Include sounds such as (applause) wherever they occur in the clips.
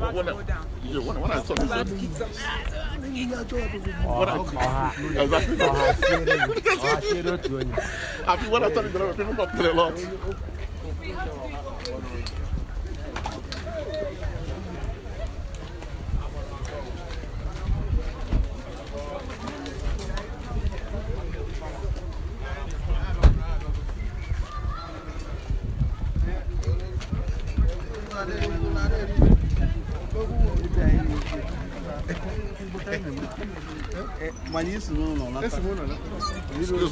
about to I, go down. I saw this, about to kick some ass. Exactly. (laughs) I a lot. mundo, no, né? no. Ese mundo, ¿no? Né? Excuse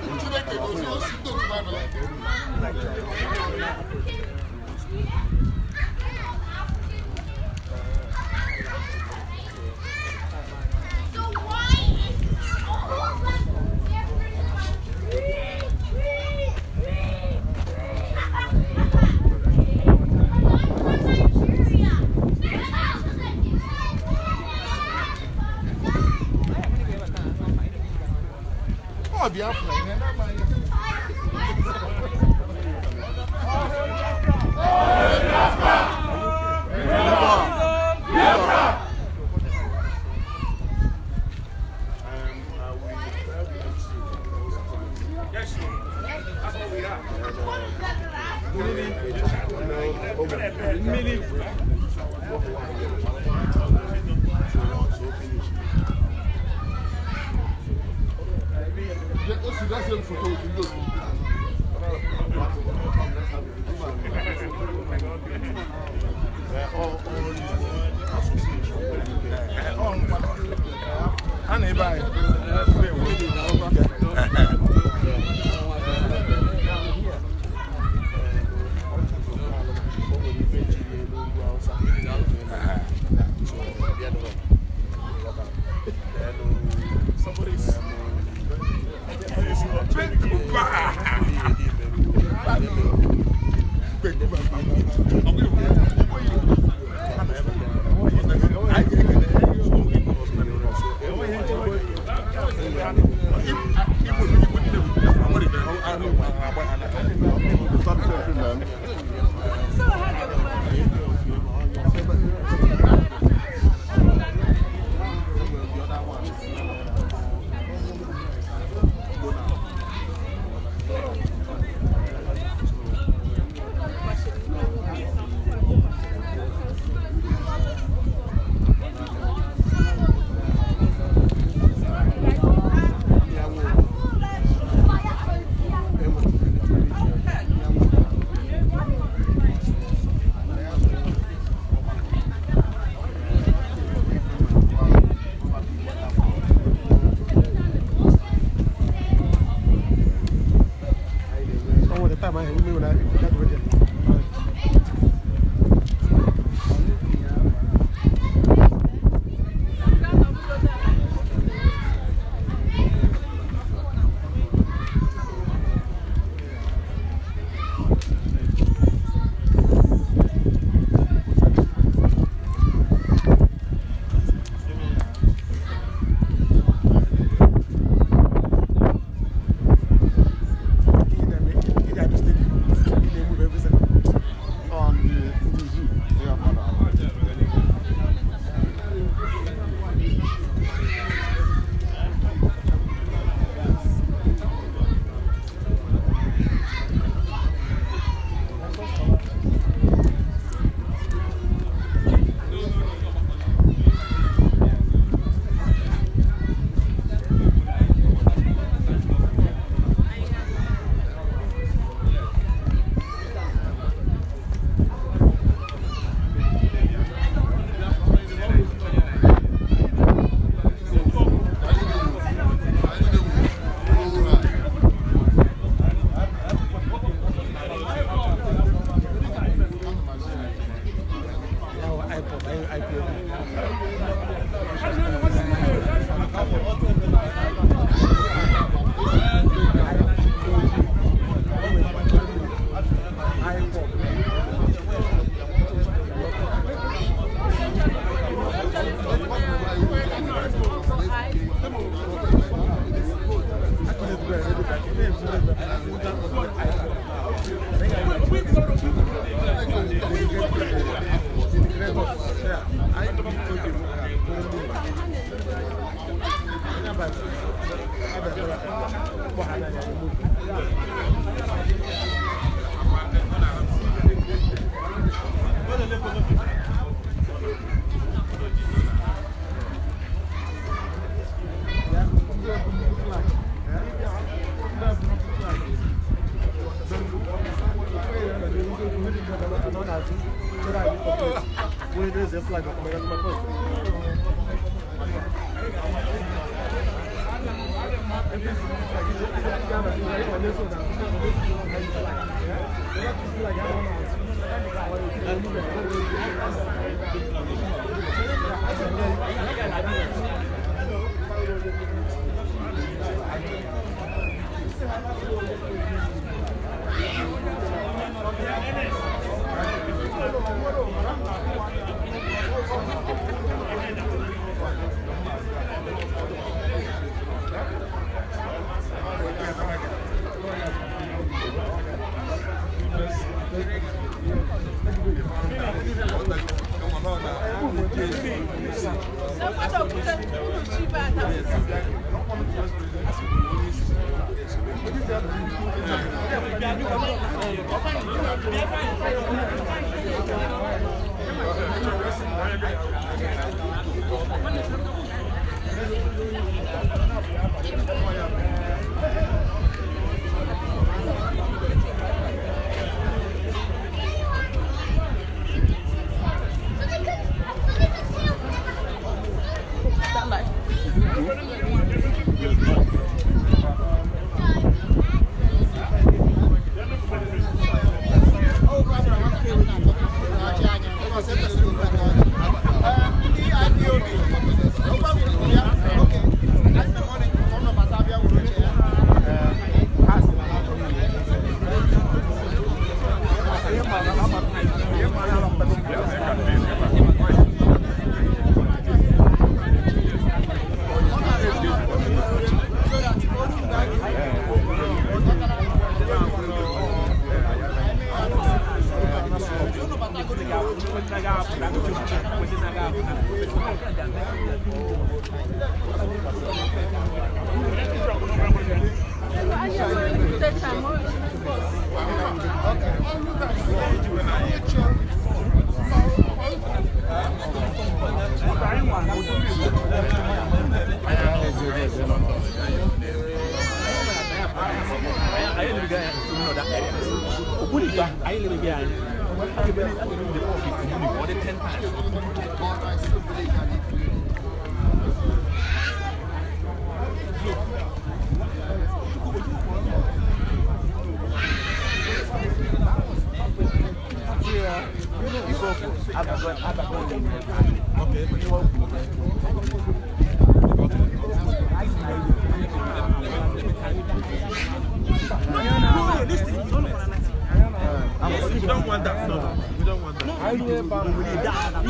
我知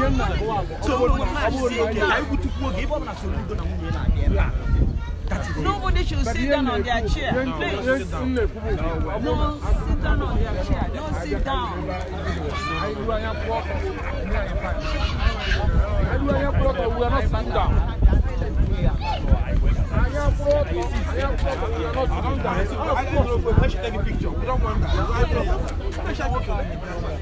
Nobody should sit down on their chair, please. no sit down on their chair. Don't sit down. I am fraud. I am fraud. We are not down. I don't know if we should take a picture. We don't want that. Special picture.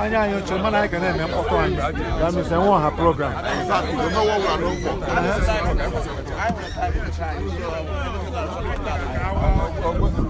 Anya yo chuma na kana me mpoto an. That means I want her program. Exactly. You know what we are looking for. I want to try.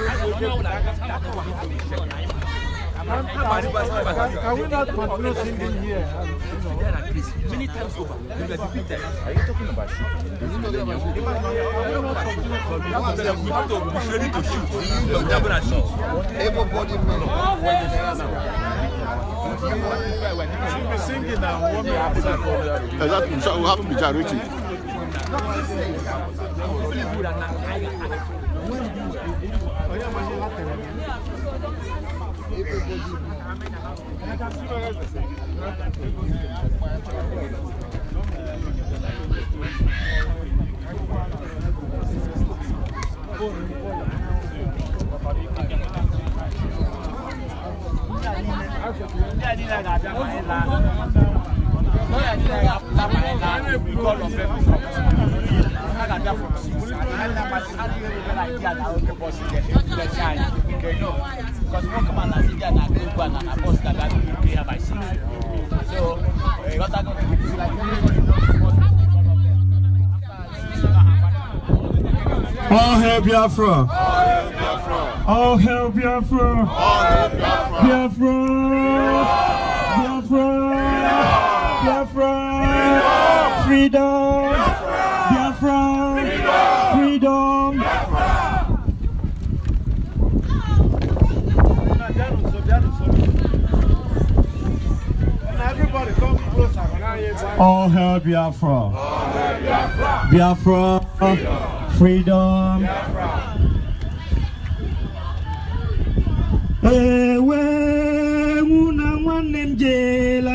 Can we not continue singing here? Many times over. Are you talking about We have to be ready to shoot. You're Everybody men. Should be singing and warming outside. Exactly. we have to be generating. 你家在哪？家在哪？Because one come and I see All hail Biafra. All hail Biafra. All hail Biafra. Biafra. Biafra. Biafra. Biafra! Freedom! Biafra! Freedom! All hail Biafra! Biafra! Biafra! Freedom! Ewe, una nwanne m jeela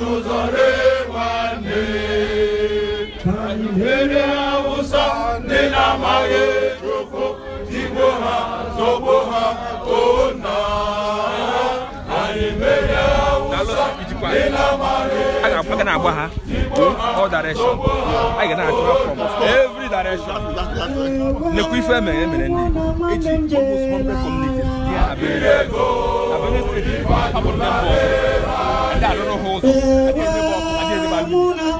n'ụzọre nwanne ka anyị mere awụsa ndị na-amaghị chukwu tigbo ha zọgbo ha ona anyị mere awụsa ndị na-amaghị chukwu tigbo ha zọgbo ha ona every direction nekwa ife emere emere ndị eji almost one community abịa abịa steeti abụrụ na mbụ a lot of holes. I didn't never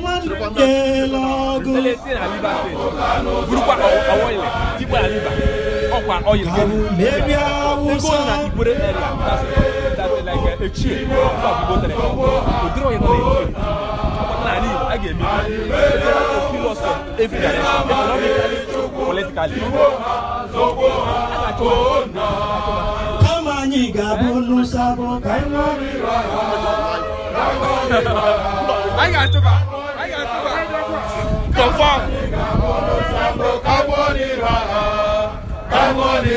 lose. like a gẹ̀ mí. Ẹ̀rọ tó fi lọ sọ, ebi dàrẹ́, economically, politically. Àtàtò náà. Kọ́mọ̀ yìí gàbó ló sábọ̀ Anyị ga-achụba anyị ga-achụba confam kama anyị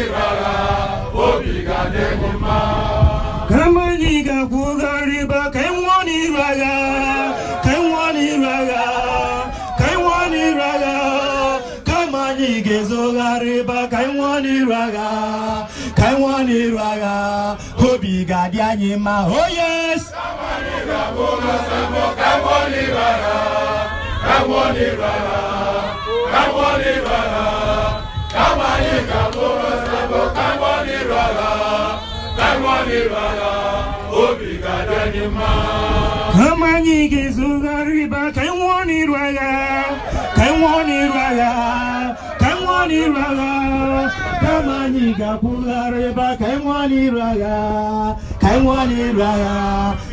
ga-akwụgharị ba ka anyị nwụọ n'iru agha ka anyị nwụọ n'iru agha ka anyị nwụọ n'iru agha kama anyị ga-ezogharị ba ka anyị nwụọ n'iru agha ka anyị nwụọ n'iru agha obi ga-adị anyị mma oh yes Kamola Sambo, Kamoni Rara, Kamoni Rara, Kamoni Rara, Kamani Kamola Sambo, Kamoni Rara, Kamoni Rara, Obi Gadanima. Kamani Gizugari, but I want it Rara, Kamoni Rara, Kamoni Rara, Kamani Kapula Reba, Kamoni Rara, Kamoni Rara.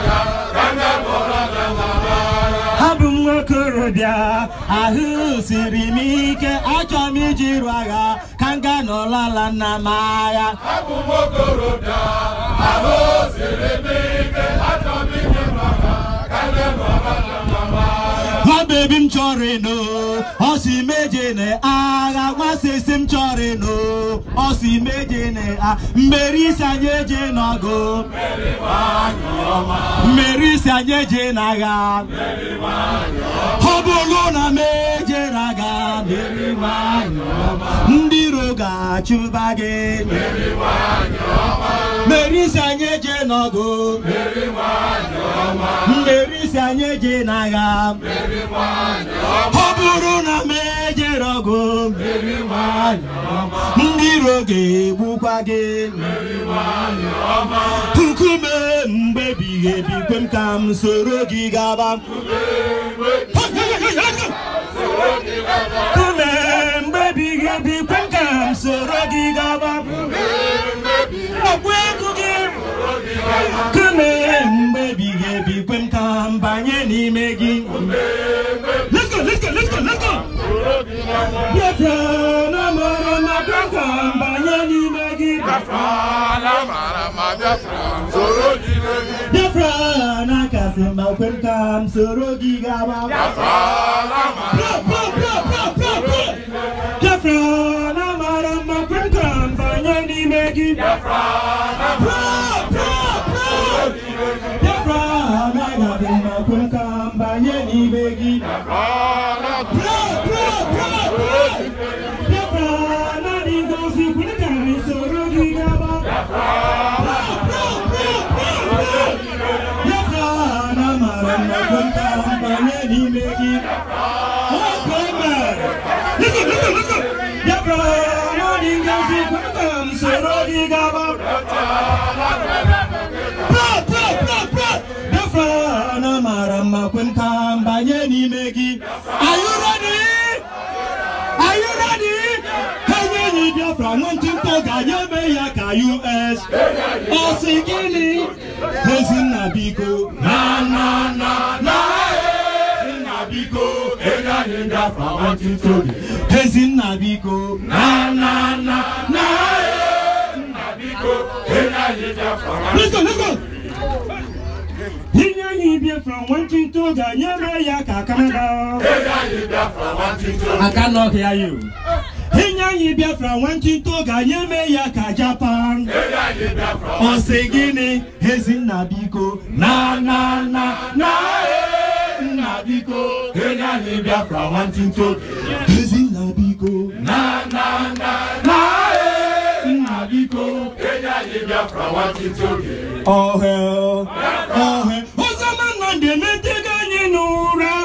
bụ m nwokorobịa ahụ siri m ike achọ m ijiru agha ka m gaa n'ọlala nna m agha abụ m nwokorobịa ahụ siri m ike achọ m ijiru agha ka m gaa n'ọlala nwamba ebi m chọrọ ịnụ ọ si meje na agha nwasị isi m chọrọ ịnụ ọ si meje na a mmeri isi anyị eje n'ọgụ mmeri isi anyị eje na agha ọ bụrụ na m eje na agha ndị iro ga-achụba gị mmeri isi anyị eje n'ọgụ mmeri isi anyị eje na ọ bụrụ na m ejere ọgụ ndị iro ga-egbukwa gị nkume mgbe ebighị kwe m ka m soro gị gaba nkume mgbe ebighị ebi kwe m ka m soro gị gaba ọgwụ ego gị nkume mgbe ebighị ebi na mbanye n'ime gị let's go let's go let's go let's go biafra na mara ma biafra mbanye n'ime gị biafra na kasị mma kwe m ka m soro gị gaba biafra na mara mma kwe m ka mbanye n'ime gị biafra sigaba pro pro pro pro Biafra na mara mma kwe m ka m banye n'ime gị are you ready are you ready kenye enyi Biafra nwantịntọ ga-anya eme ya ka US ọ sị gịnị Ezinna biko na na na na Ezinna biko enye anyị Biafra nwantịntọ Ezinna biko na na na na Ihe anyị Biafra nwantịntị oge ga eme ya ka aka aka n'ọhịa ya Ihe anyị Biafra nwantịntị oge ga eme ya ka Japan ọ sị gịnị Ezinna biko na na na na nna eh, biko ihe anyị bịa Biafra nwantịntị oge Ezinna biko na na na na Biafra want to hear. Oh hell, Biafra. oh hell. Osama Nande, me take a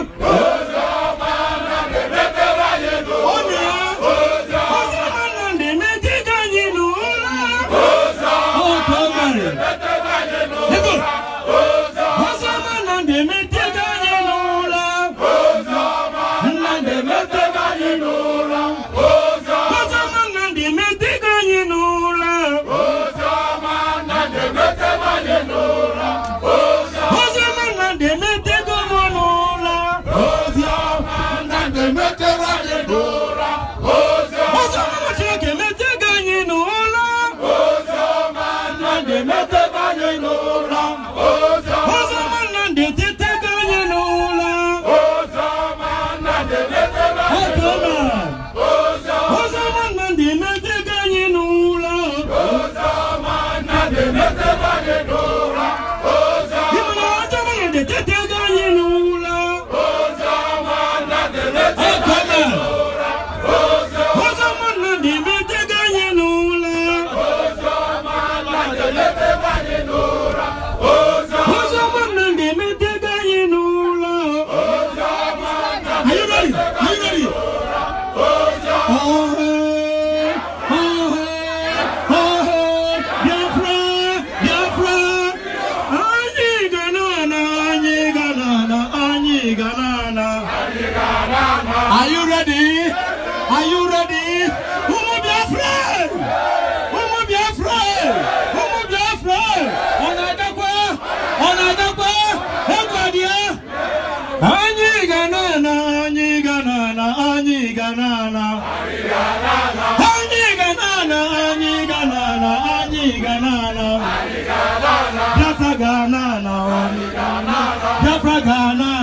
Ghana.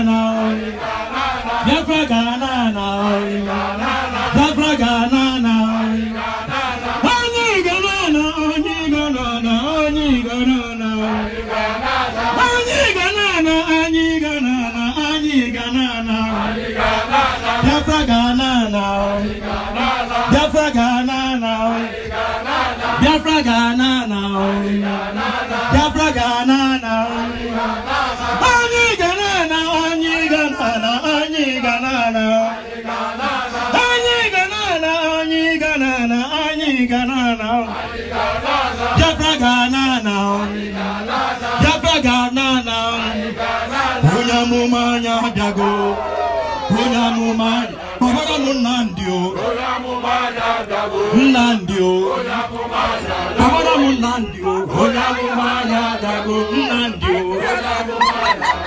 Olamumaya Dagunandio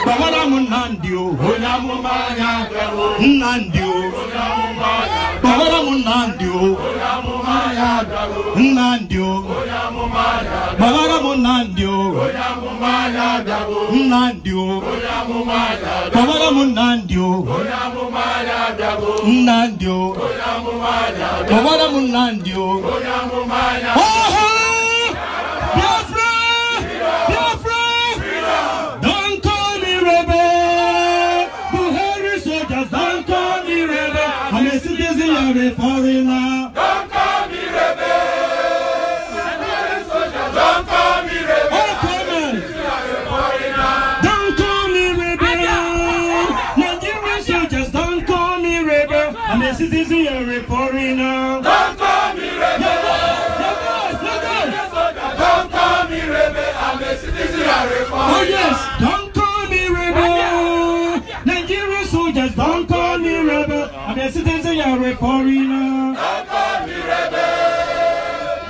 Bavaramunandio Olamumaya Nandio Bavaramunandio Olamumaya Nandio Bavaramunandio Olamumaya Nandio Bavaramunandio Nandio Nandio, Nandio, Bavaramunandio Oh Bakari Farila. Don't call me rebel. Don't call me rebel. Oh, come on. Don't call me rebel. Nigerian soldiers, don't call me rebel. I'm a citizen, you're a foreigner. Don't call me rebel. Don't call me rebel. I'm a citizen, you're a foreigner. Oh, yes. Don't Akọrin náà. Ọkọ mi rẹ̀bẹ̀.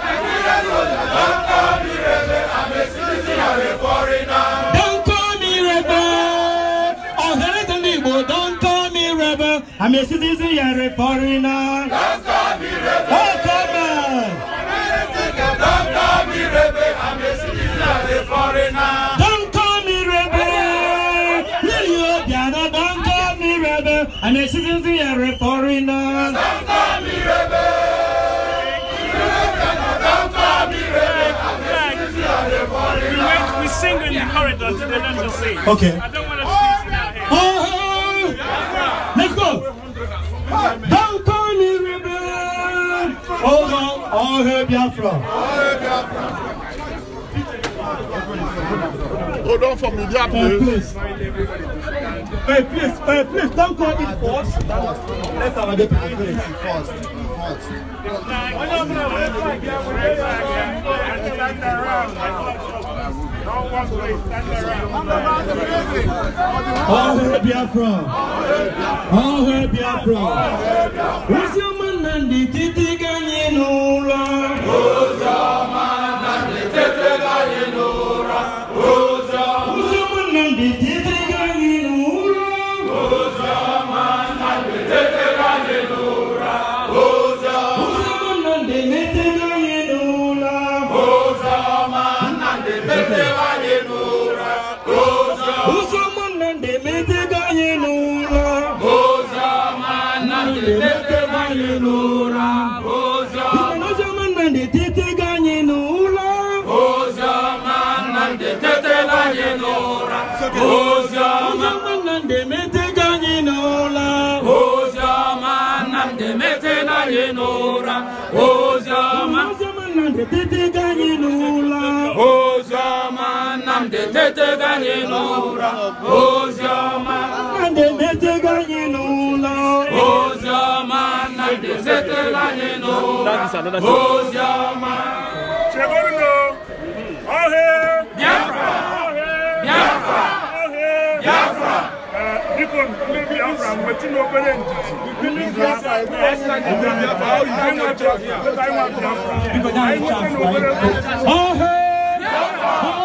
Nàìjíríà ló a Ọkọ mi rẹ̀bẹ̀. Àmì náà. Don't call me rebel. Ọ̀sẹ̀rẹ̀ tó ní ìbò don't call me rebel. Àmì sísí àmì kọrin náà. Don't call me rebel. Ọkọ mi. Àmì sísí àmì kọrin náà. Don't and the citizens are referring us. We, sing in the corridor let us sing. Okay. I don't want to sing in our Over all her Biafra. Hold on for media, please. Hey, please, hey, please, don't call it first. Let's have a debate. First, first. All hail Biafra! All hail from? Who's your man and the titi ganyin ura? Who's your man and the titi ganyin be na-emetega anyị n'ụra ozi ọma na-emetega anyị n'ụlọ ozi ọma na-emetega anyị n'ụra ozi ọma chegoruno ọhe Biafra Biafra Biafra biko ndị Biafra nwetụna obere ndidi ọhe Biafra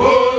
Whoa!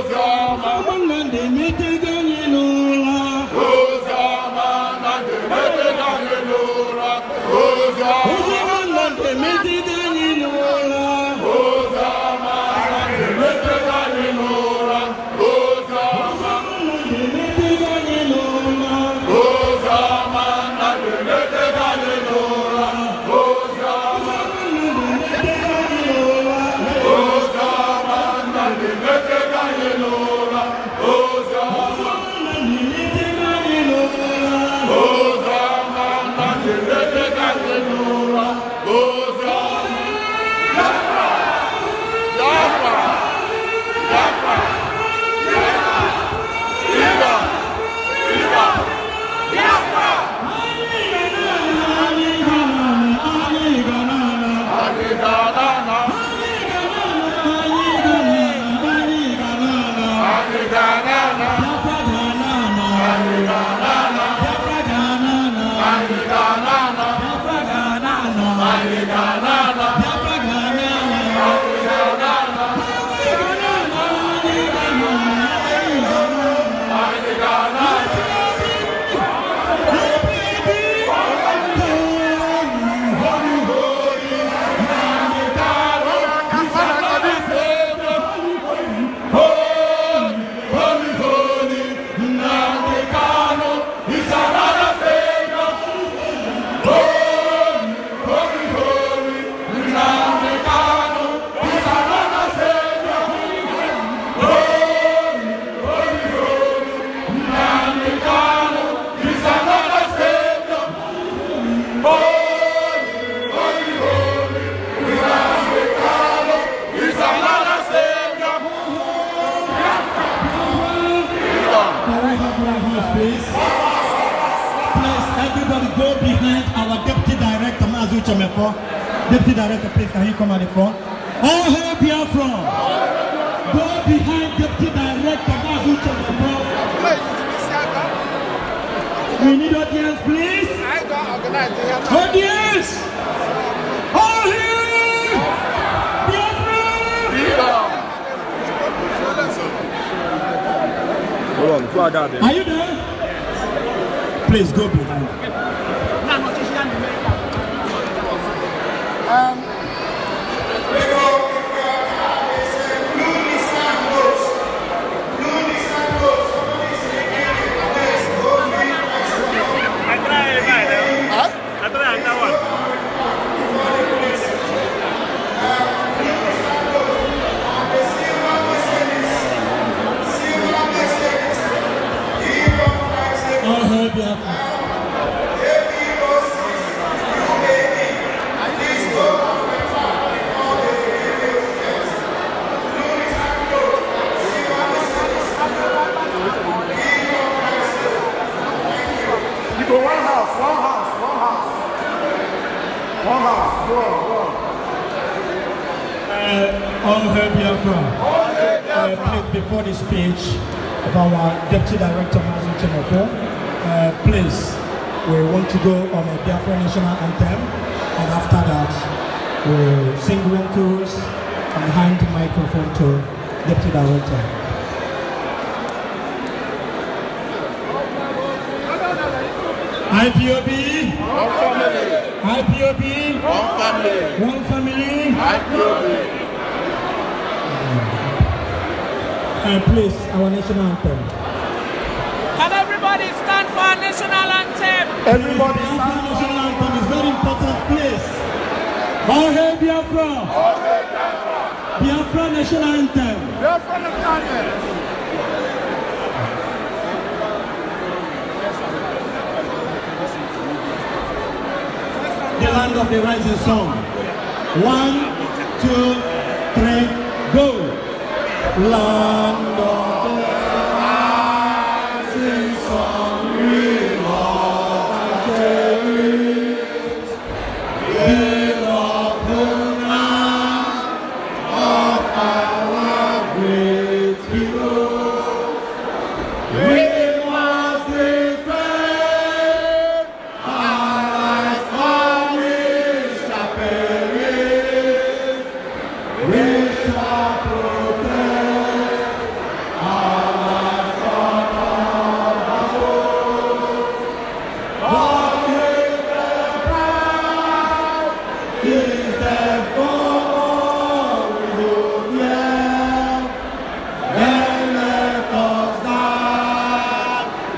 do.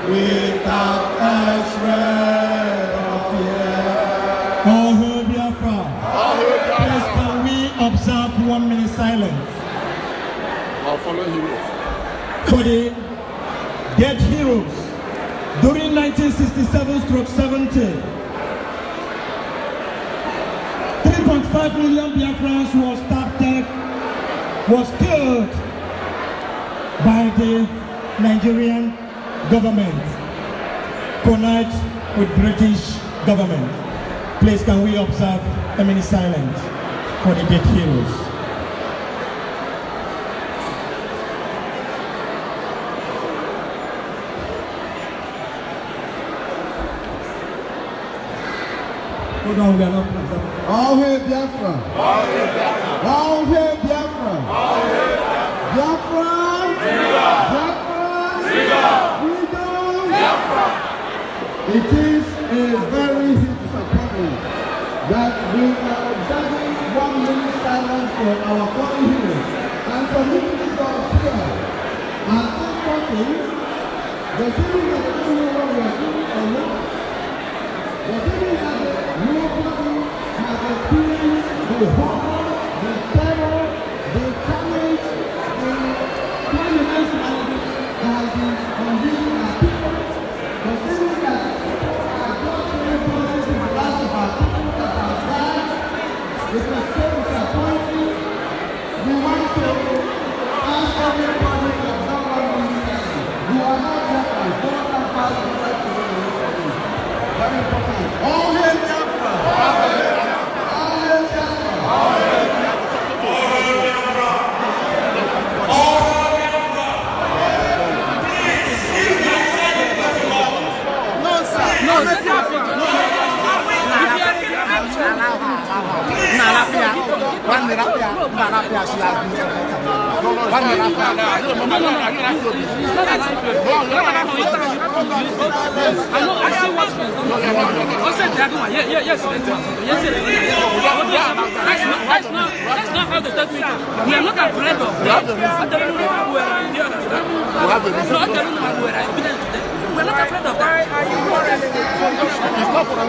without a shred of fear. Oh, who be Biafra, please can we observe one minute silence? I'll follow heroes. For the dead heroes during 1967-70. 3.5 million Biafrans was started, was killed by the Nigerian government collide with British government. Please can we observe a minute silence for the dead heroes. Hold on, we are not. All hail Biafra! All hail Biafra! All hail It is a very disappointment that we are observing one minute silence for our fallen heroes and submitting this to our prayer. At this point, the feeling that they don't know what we are doing or not, the feeling that they are what we have experienced the whole One minute after, man after she has been One minute after. No, no, no, no, you're not doing this. No, no, no, I know, I see what's going on. I one, yeah, yeah, yes, yes, That's not, that's the third We are not at of. We We are not afraid of that. Why are you worried?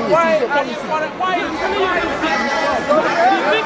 Why are you worried? Why are you worried?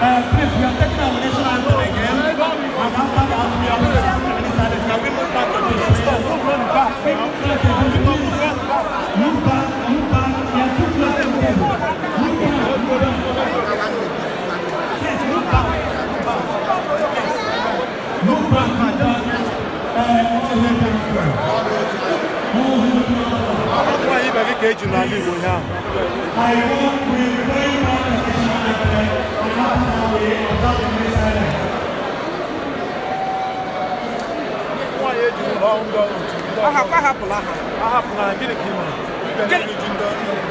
Uh, please, we are taking our national anthem again. And after that, we are going to the minister. Can we move back to the store? Don't run back. Move back, move back. You are too close to the table. Move back. Yes, move back. Move back, madam. very much. ahapụ ahapụla ha ahapụla ha gịnị ka ị mere gịnị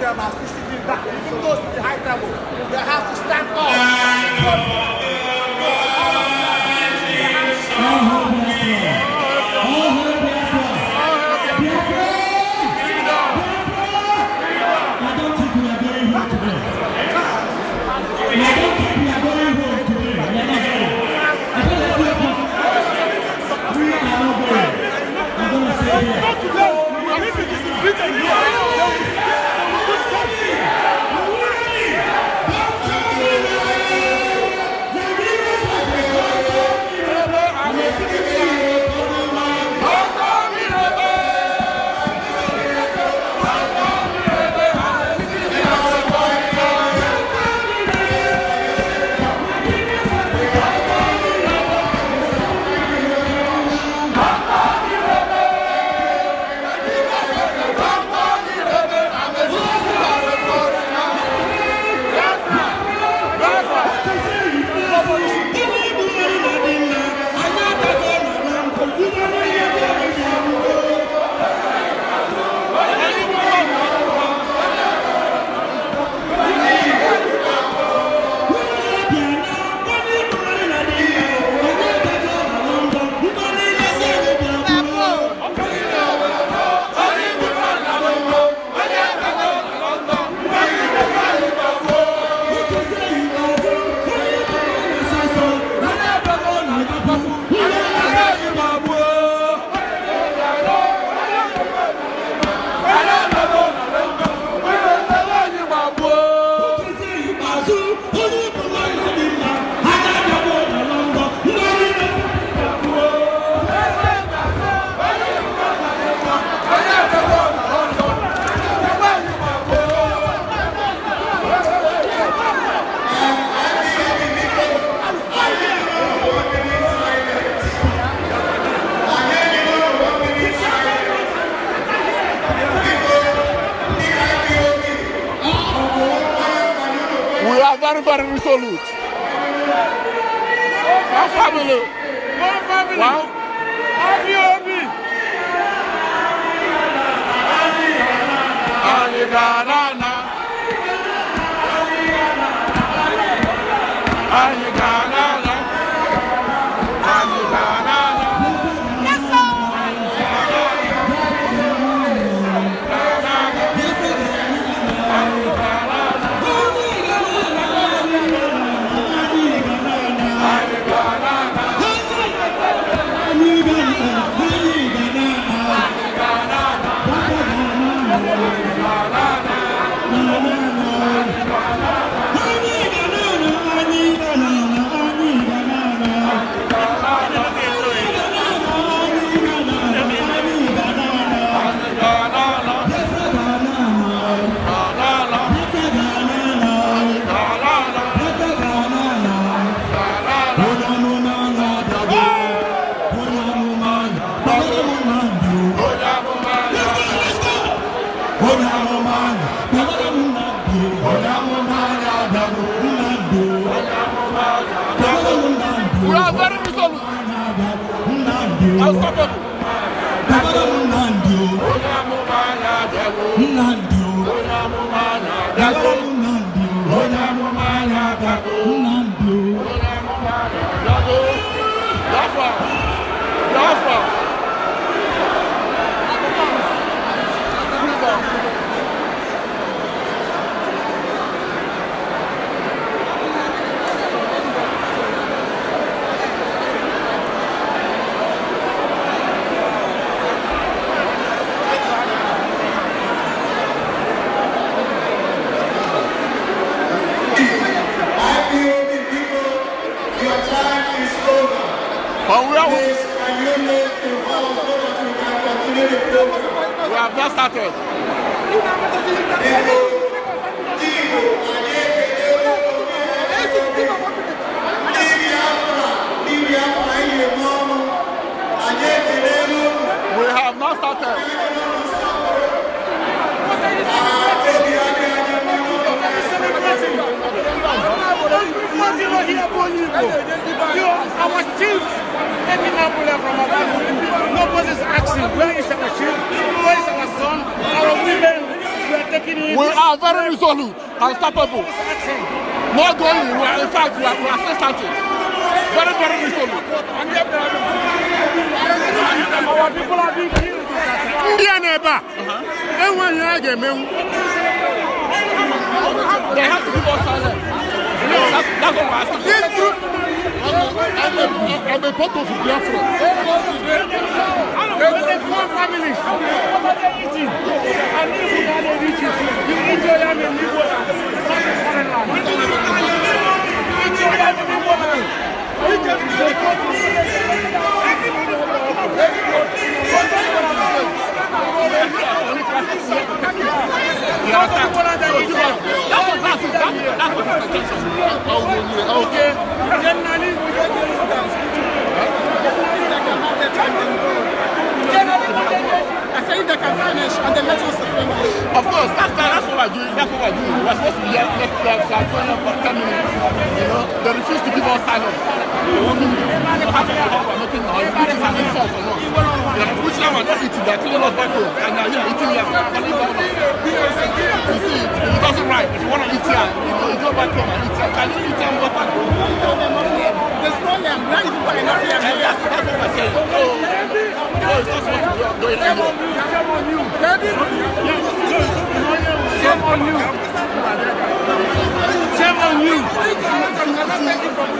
them are back. Even those in the high table, they have to stand up. popular from our family. Nobody's asking, where is our chief? Where is our son? Our women, we are taking it. We are very resolute and capable. Not going, we are, in fact, we are, we are still starting. Very, very resolute. Uh, our people are being killed. India a na-ebe a, They have to be us silence. that's what we're asking. I'm a part of Biafra. There were four families. What are eating? to if you need to eating, you eat your yam and leave water. Eat your yam and leave water. Eat to yam and Generally, say they can finish and then let us finish. Of course, that's, that's what we're doing. That's what we're doing. We're supposed to be here next year for 20 10 minutes. You know, they refuse to give us silence. They want me to have to hour making noise, which is an insult or not. They pushing them and not eating. They're are killing us back home. And now you eating here. You see, it doesn't right. If you want to eat here, you you go back home and eat here. Can you eat here and go back home? There's on. Shame on you. Shame on you. Shame on you.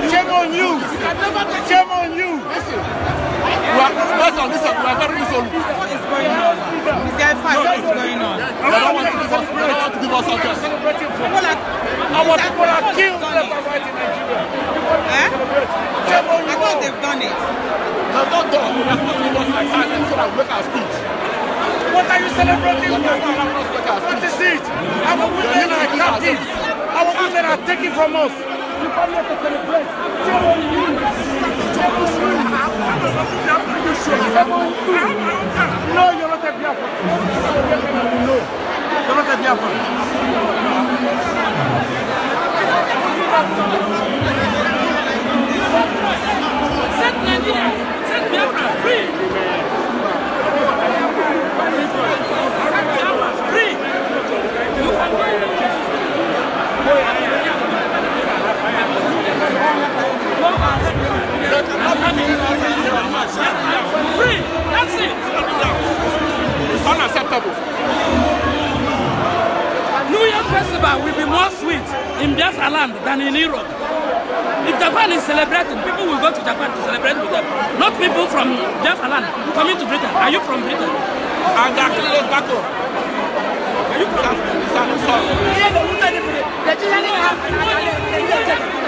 Shame on you. Shame on you. Shame on you. What is going on? what is going on? I want to give us, I don't want to give us address. People are, Our people are killed left I thought they've done it. They've not done. We are to make our speech. What are you celebrating for? What is it? Our women are captive. Our women are taken from us. You come here to celebrate. Shame on you. No, you're not a Biafra. No, you're not a Biafra. Set Nigeria, set Biafra free. Set Biafra free. You can go. Free. That's it. It's unacceptable. New Year festival will be more sweet in Biafra land than in Europe. If Japan is celebrating, people will go to Japan to celebrate with them. Not people from Biafra land coming to Britain. Are you from Britain? I'm actually Gato. Are you from Britain?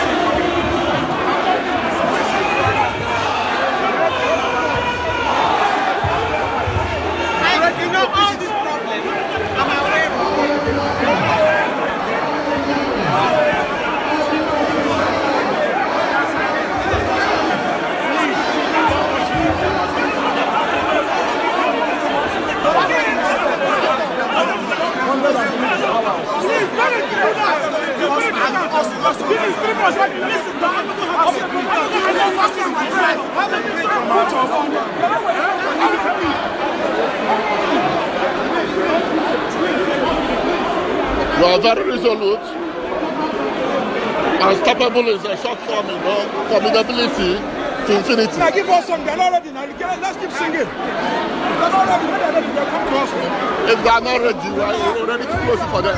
You are very resolute and stoppable is a short form, you know, formidability to infinity. Now give us some, they're not ready now. Let's keep singing. If they're not ready, they're coming to us. If they're not ready, we're already too close for them.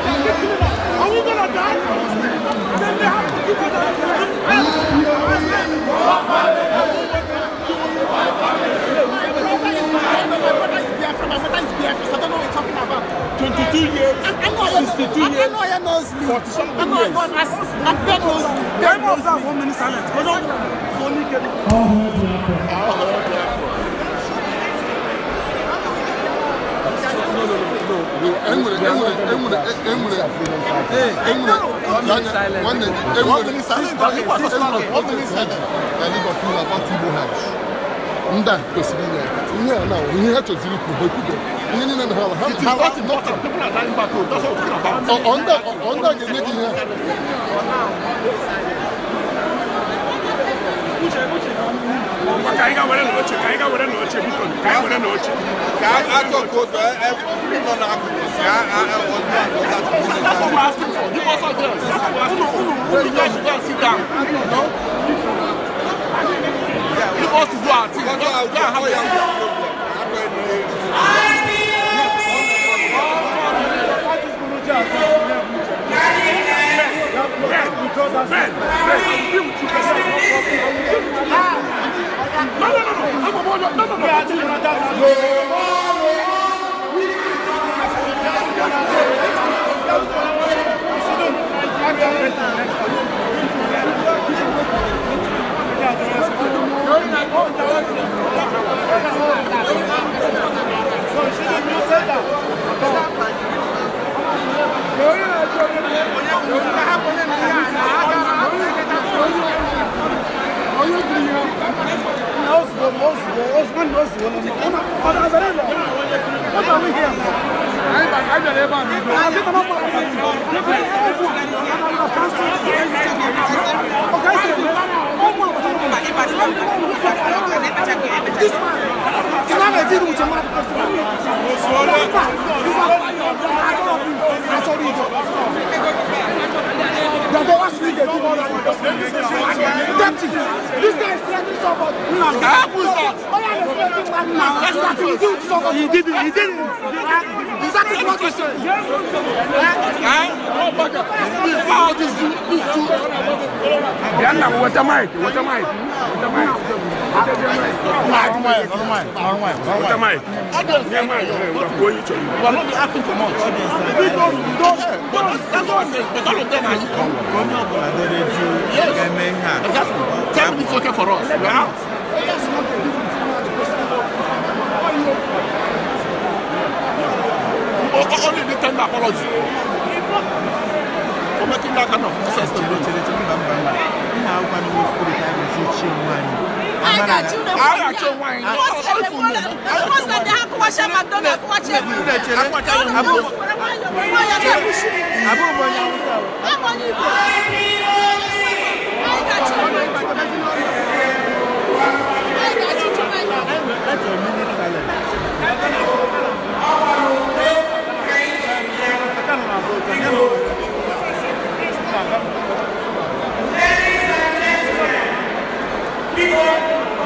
Are we gonna die? Then they have to give us Twenty-two years, sixty-two years, forty-seven years. I know I got as I got those. Why was that one minute silence? Because only. All heard the applause. All heard the applause. ndị a kwesịrị inye ihe a na-awụ ihe ha chọziri ikwu ha ekwudo ihe niile na ha ha ha ga-enye gị ihe Kwa ka anyị ga were n'oche ka anyị ga were n'oche biko ka anyị were n'oche. Ka akụkụ ụzọ nọ n'akụkụ si That's what we're asking for. Give us our girls. That's what we're asking for. Who the girls should go and sit down? No? Give us to do our thing. Go and have a Yeah. Ben, Ben, I will deal with you. No, no, no, no. I'm a boy. No, no, no. So she didn't say that. Okay, so Deputy. This guy is threatening someone. No, how cool is that? Oh, yeah, he's threatening man now. That's what he did to someone. He didn't. He didn't. That is what he said. Before this, this, this. Water mic. Water mic. Water mic. Normal, normal, normal. What am I? Audience. Yeah, man, we're going to you. We are not be asking for much. Audience. We don't, we don't. But that's what I'm saying. But all of them are. Come on, but I don't need to. Yes. Exactly. Tell me it's okay for us. We are out. Yes, Only the tender apology. For making that kind of access to me. Now, when we put it, I will see you, man. I got you I got your wine. What's the one? What's the one? What's the one? What's the one? What's the one? What's the one? What's the one? What's the one? What's the one? What's the one? What's People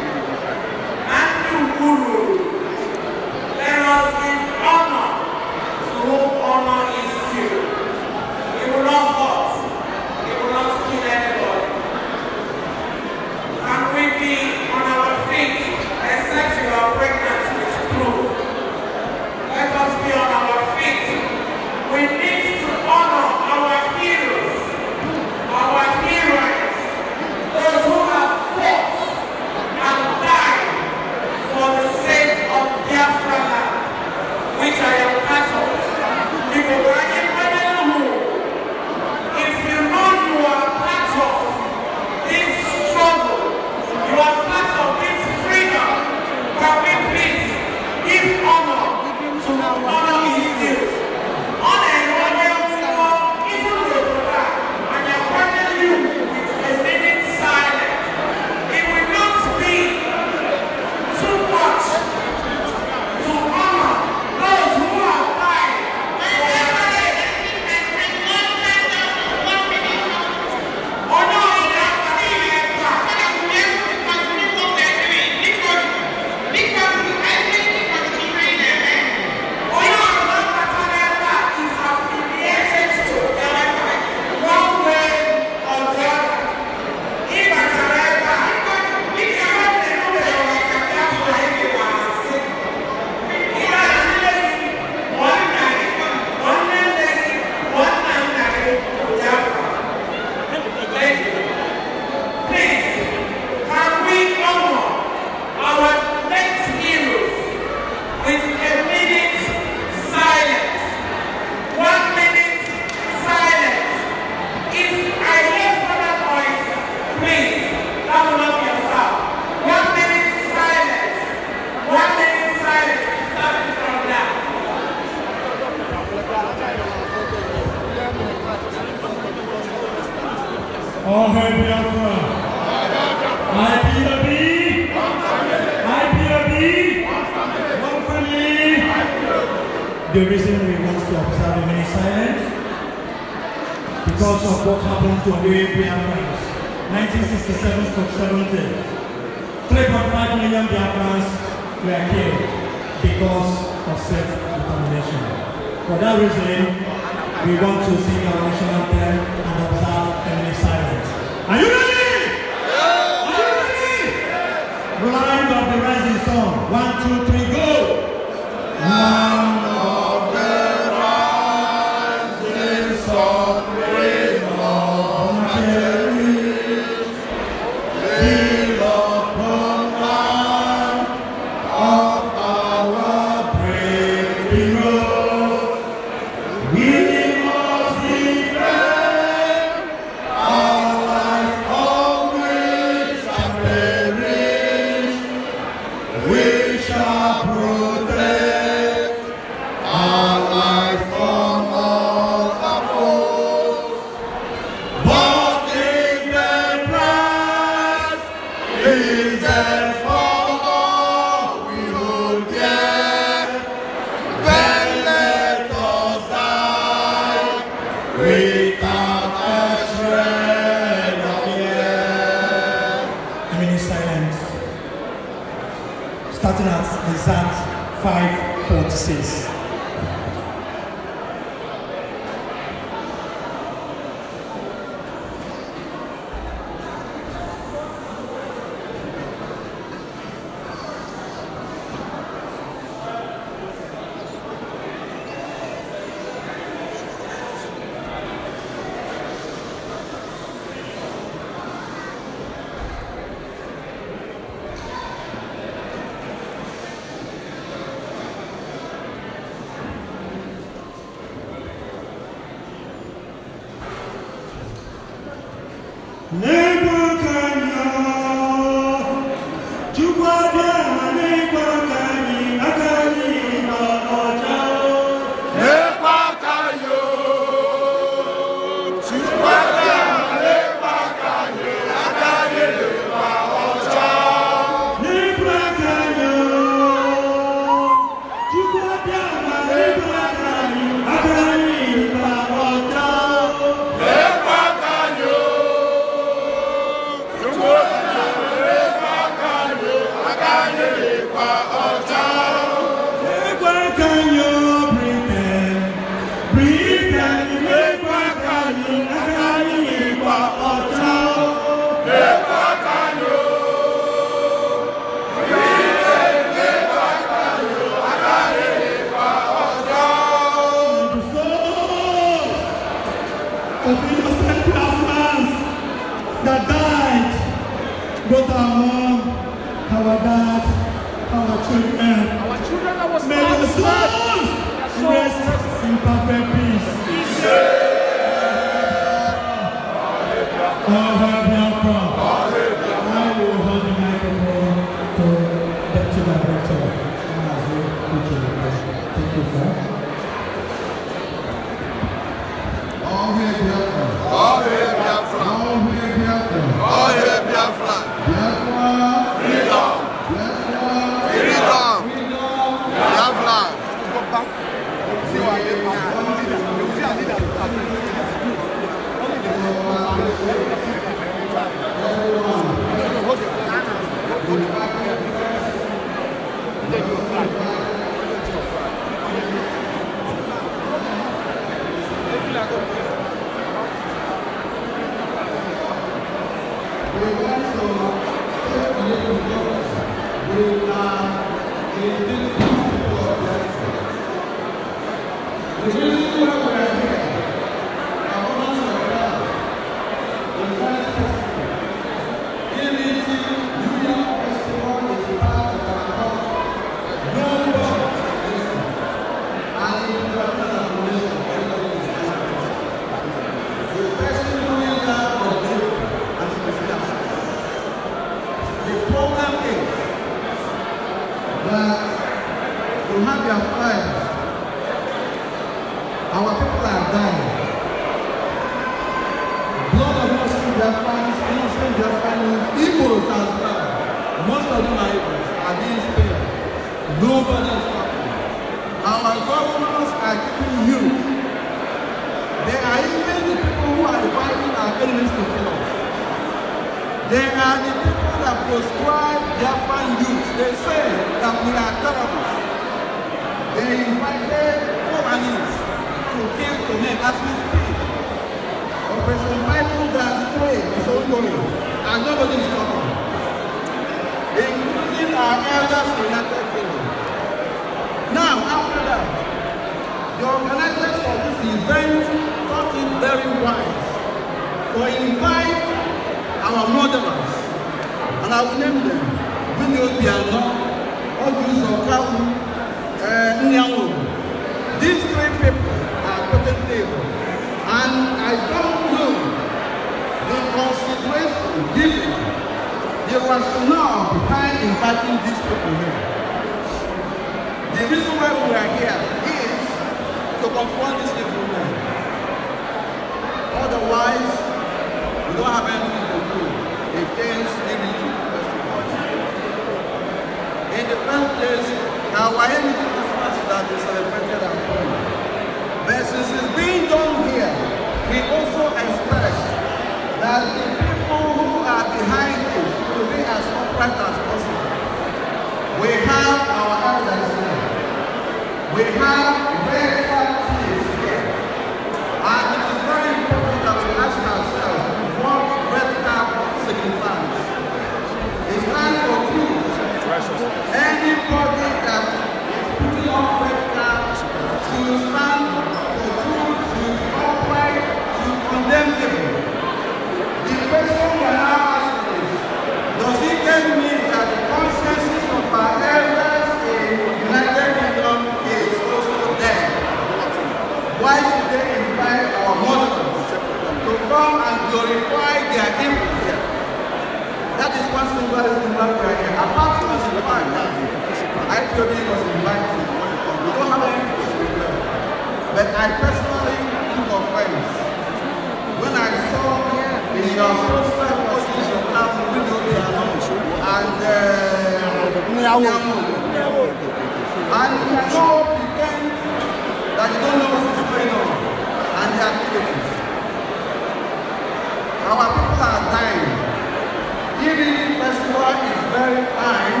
very fine,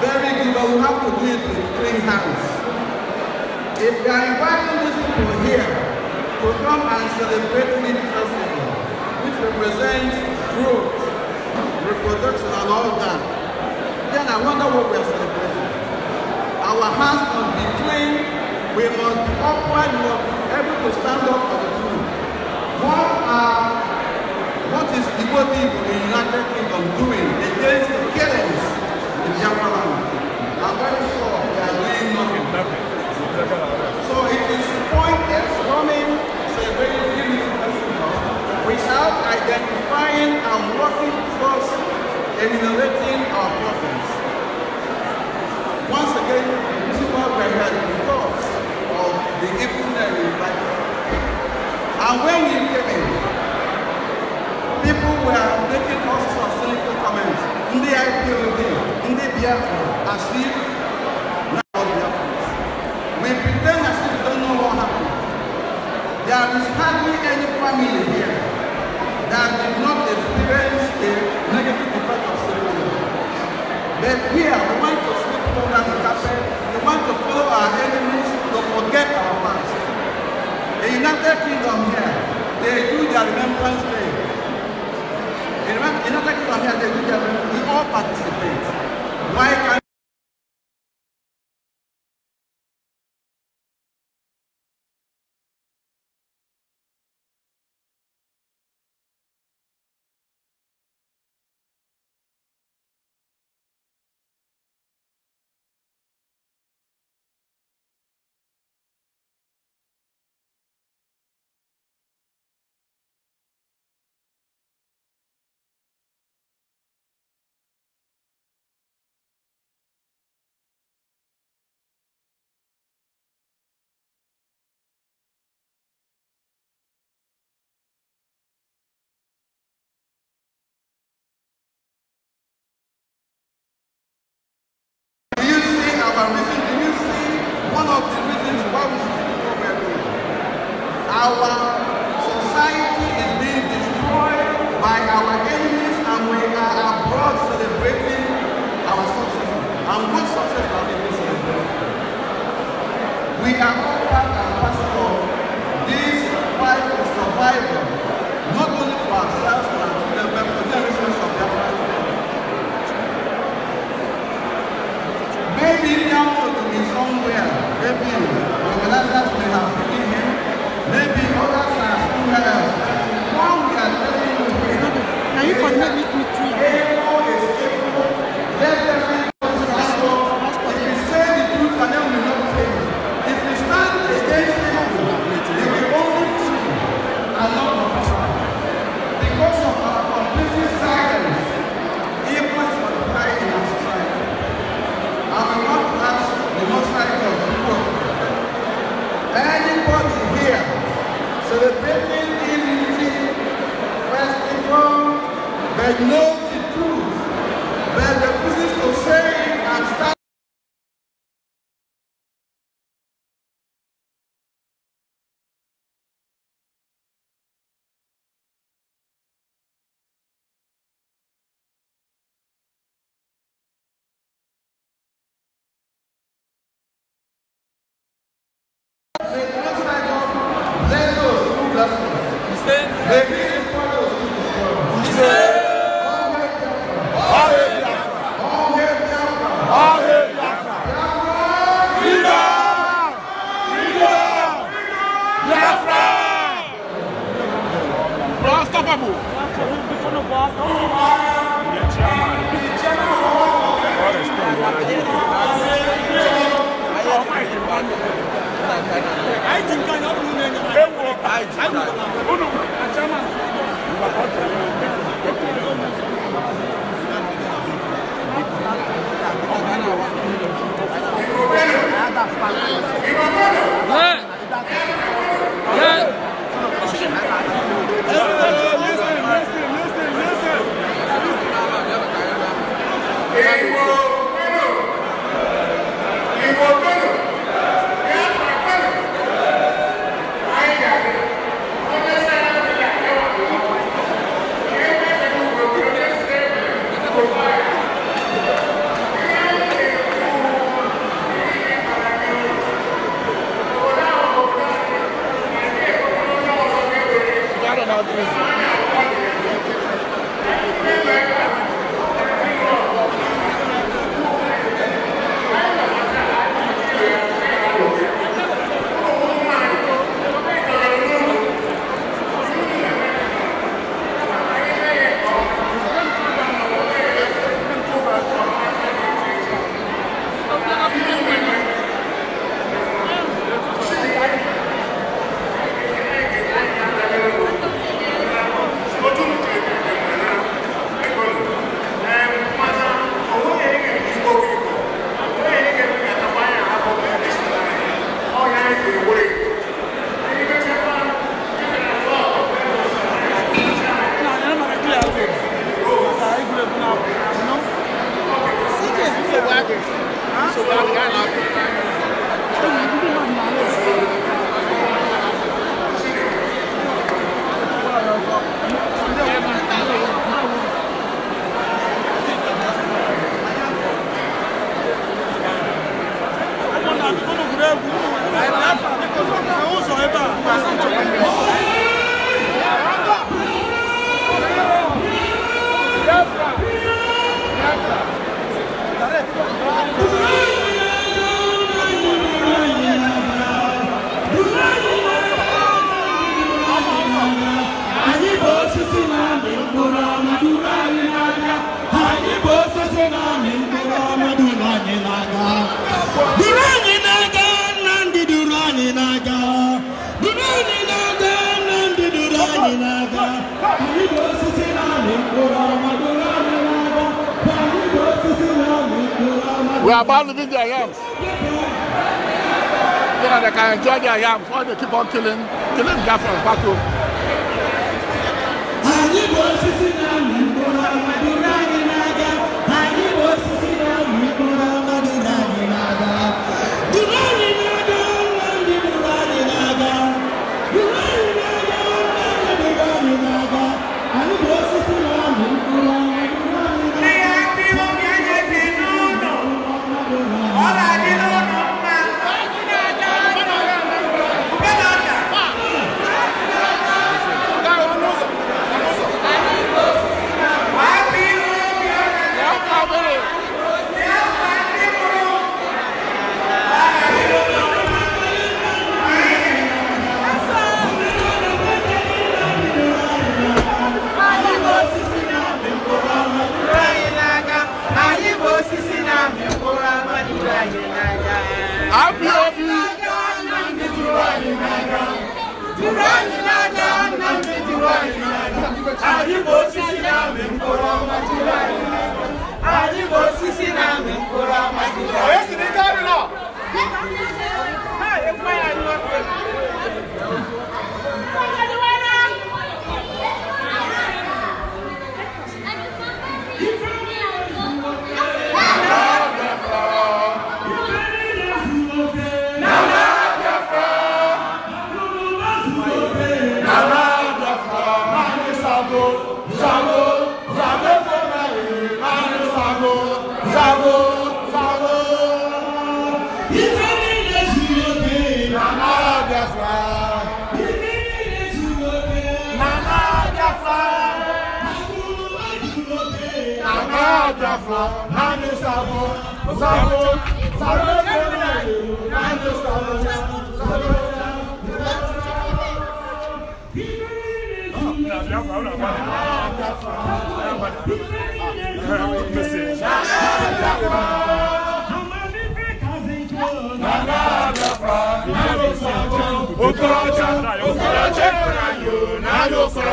very good, but we have to do it with clean hands. If you are inviting these people here to come and celebrate Lead Festival, which represents growth, reproduction, and all that, then I wonder what we are celebrating. Our hands must be clean, we must upward, we must be able to stand up for the truth. What are What is Igbo people in the United Kingdom doing against the killings in Japan? I'm very sure they are doing nothing. So it is pointless running a very limited festival without identifying and working towards eliminating our problems. Once again, this is what we had because of the evil that we invited. And when we came in, people were making all sorts of cynical comments. in Ndị IPOB, the BFO, as if Let I am before they keep on killing, killing guys from Baku.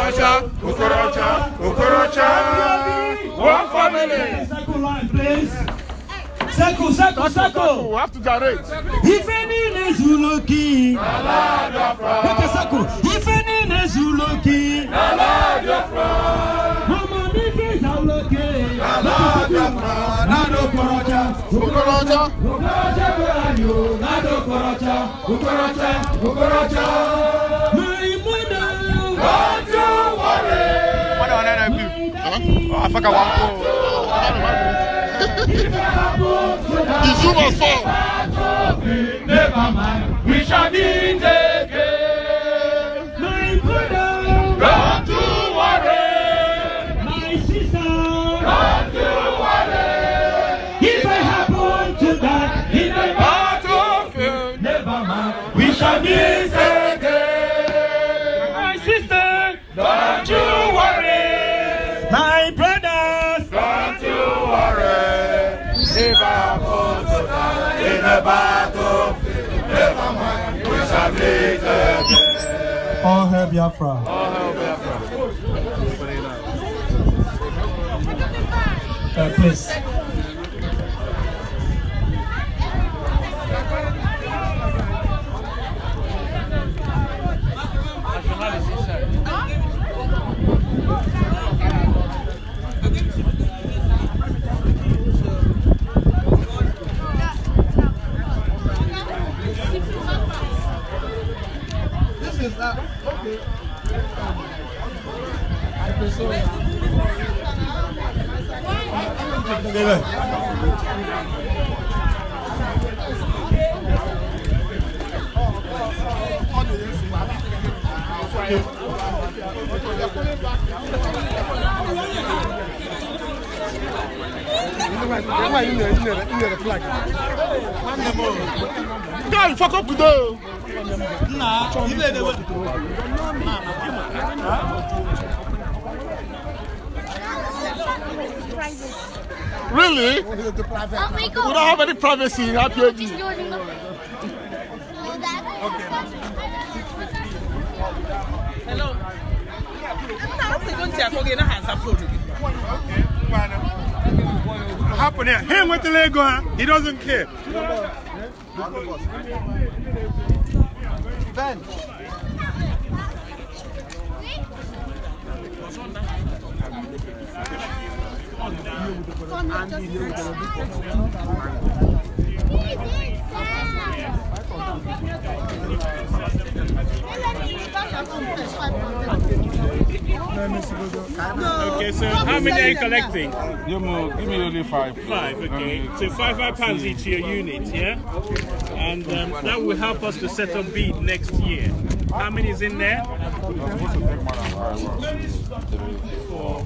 Okorocha, Okorocha, Okorocha. One family. Circle line, please. Circle, circle, circle. We have to direct. If any Nezuloki, Naladiafra. Take a circle. If any Nezuloki, Naladiafra. Mama Nifi Zauloki, Naladiafra. Nado Okorocha, Okorocha. Okorocha, where are you? Nado Okorocha, Okorocha, Okorocha. Huh? Oh, I fuck I want to. The shoe must fall. Never mind. We shall be taken. All hail Biafra. All hail Biafra. Uh, please. đây rồi Don't fuck up today. Nah, you better. Nah, nah, you private. Really? Oh, oh We don't have any privacy in RPG. Okay. Hello. Happen here. Him with the Lego. he doesn't care. Ben. Thank you. Okay, so how many are you collecting? give me only five. Five, okay. Um, so five five pounds each your unit, yeah? And um, that will help us to set up bid next year. How many is in there? Four,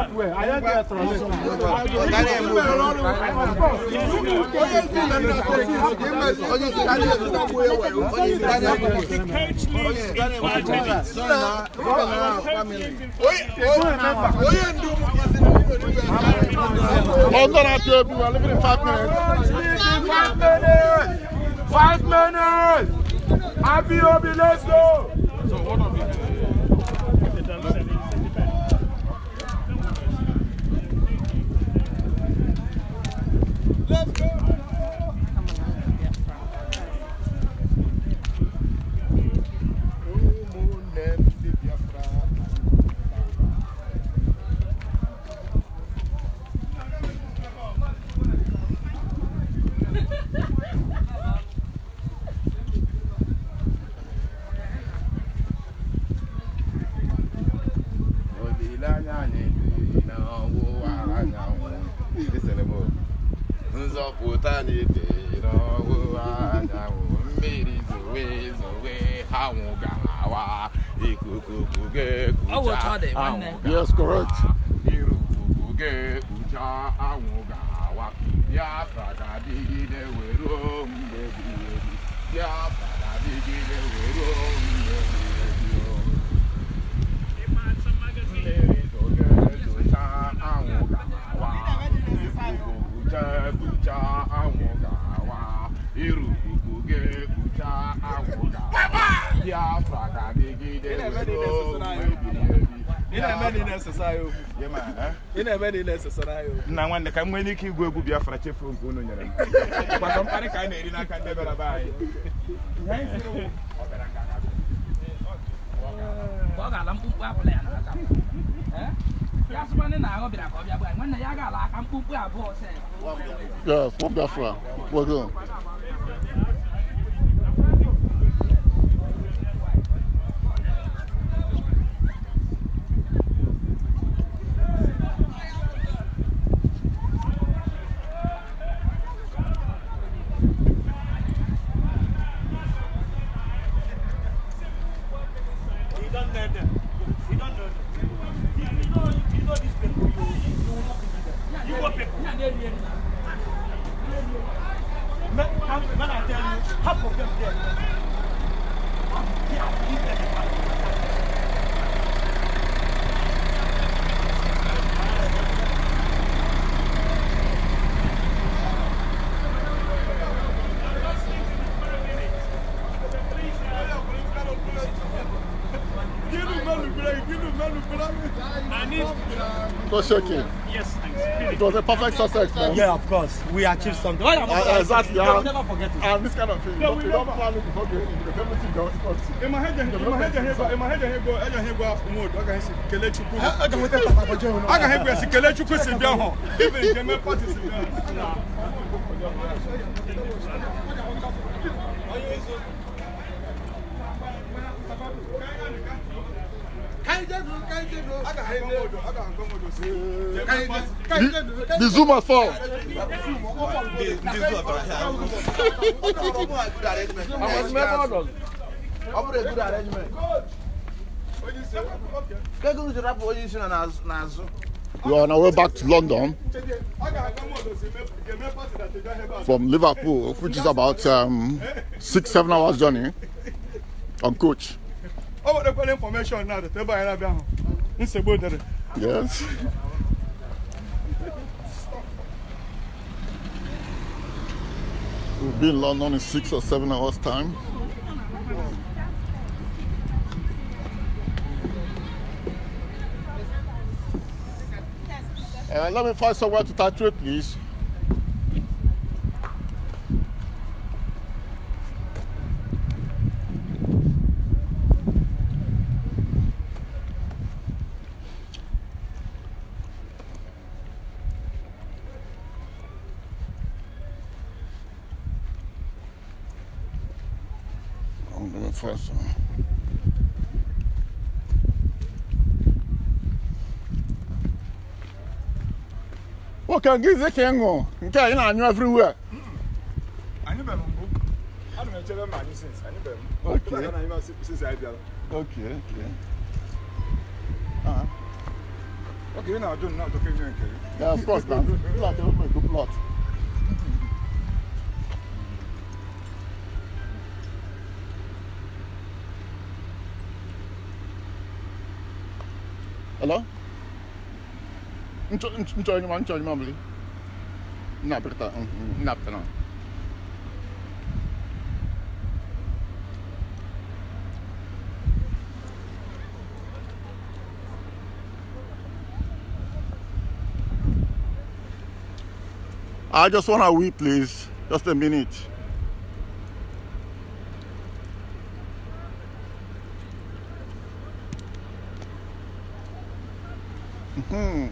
five minutes. I'm five minutes. Five Happy Obi, let's go. So what are Let's go. nna nwanne ka m nwere ike igwu egwu Biafra chefu nke unu nyere m mkparị ka a na-eri n'aka ndị bịara be anyị ọ ga-ala mkpụmkpụ abụla ya n'aka ya na-ahụ bịara ka ọ bịa gba nwanne ya ga-ala aka abụọ Yeah, of course. We achieved something. Well, uh, exactly. Yeah. never forget it. And this kind of thing. Yeah, we don't plan it before going into the everything down. In my head, in my head, in my head, in my head, in my head, in my head, I can see Kelechukwu. I can hear Kelechukwu. I can hear Kelechukwu. Even Jemmy Party. much for? You are on our way back to London from Liverpool, which is about um, six, seven hours journey on coach. Oh, the information now. Yes. be in London in six or seven hours time. Uh, let me find somewhere to tattoo, please. ka ngizi ka ịṅụ nke anyị na-anyụ everywhere. anyị bere mbụ ana m echere ma anyị sins anyị bere mbụ okay. na anyị sins anyị bịara okay, okay. Uh ah. -huh. okay, na ajụ na ajụkọ ihe nke gị yeah, of course na ụlọakụ ebe ego plot Hello? Mm, mm, I just want to wee, please. Just a minute. Mm-hmm.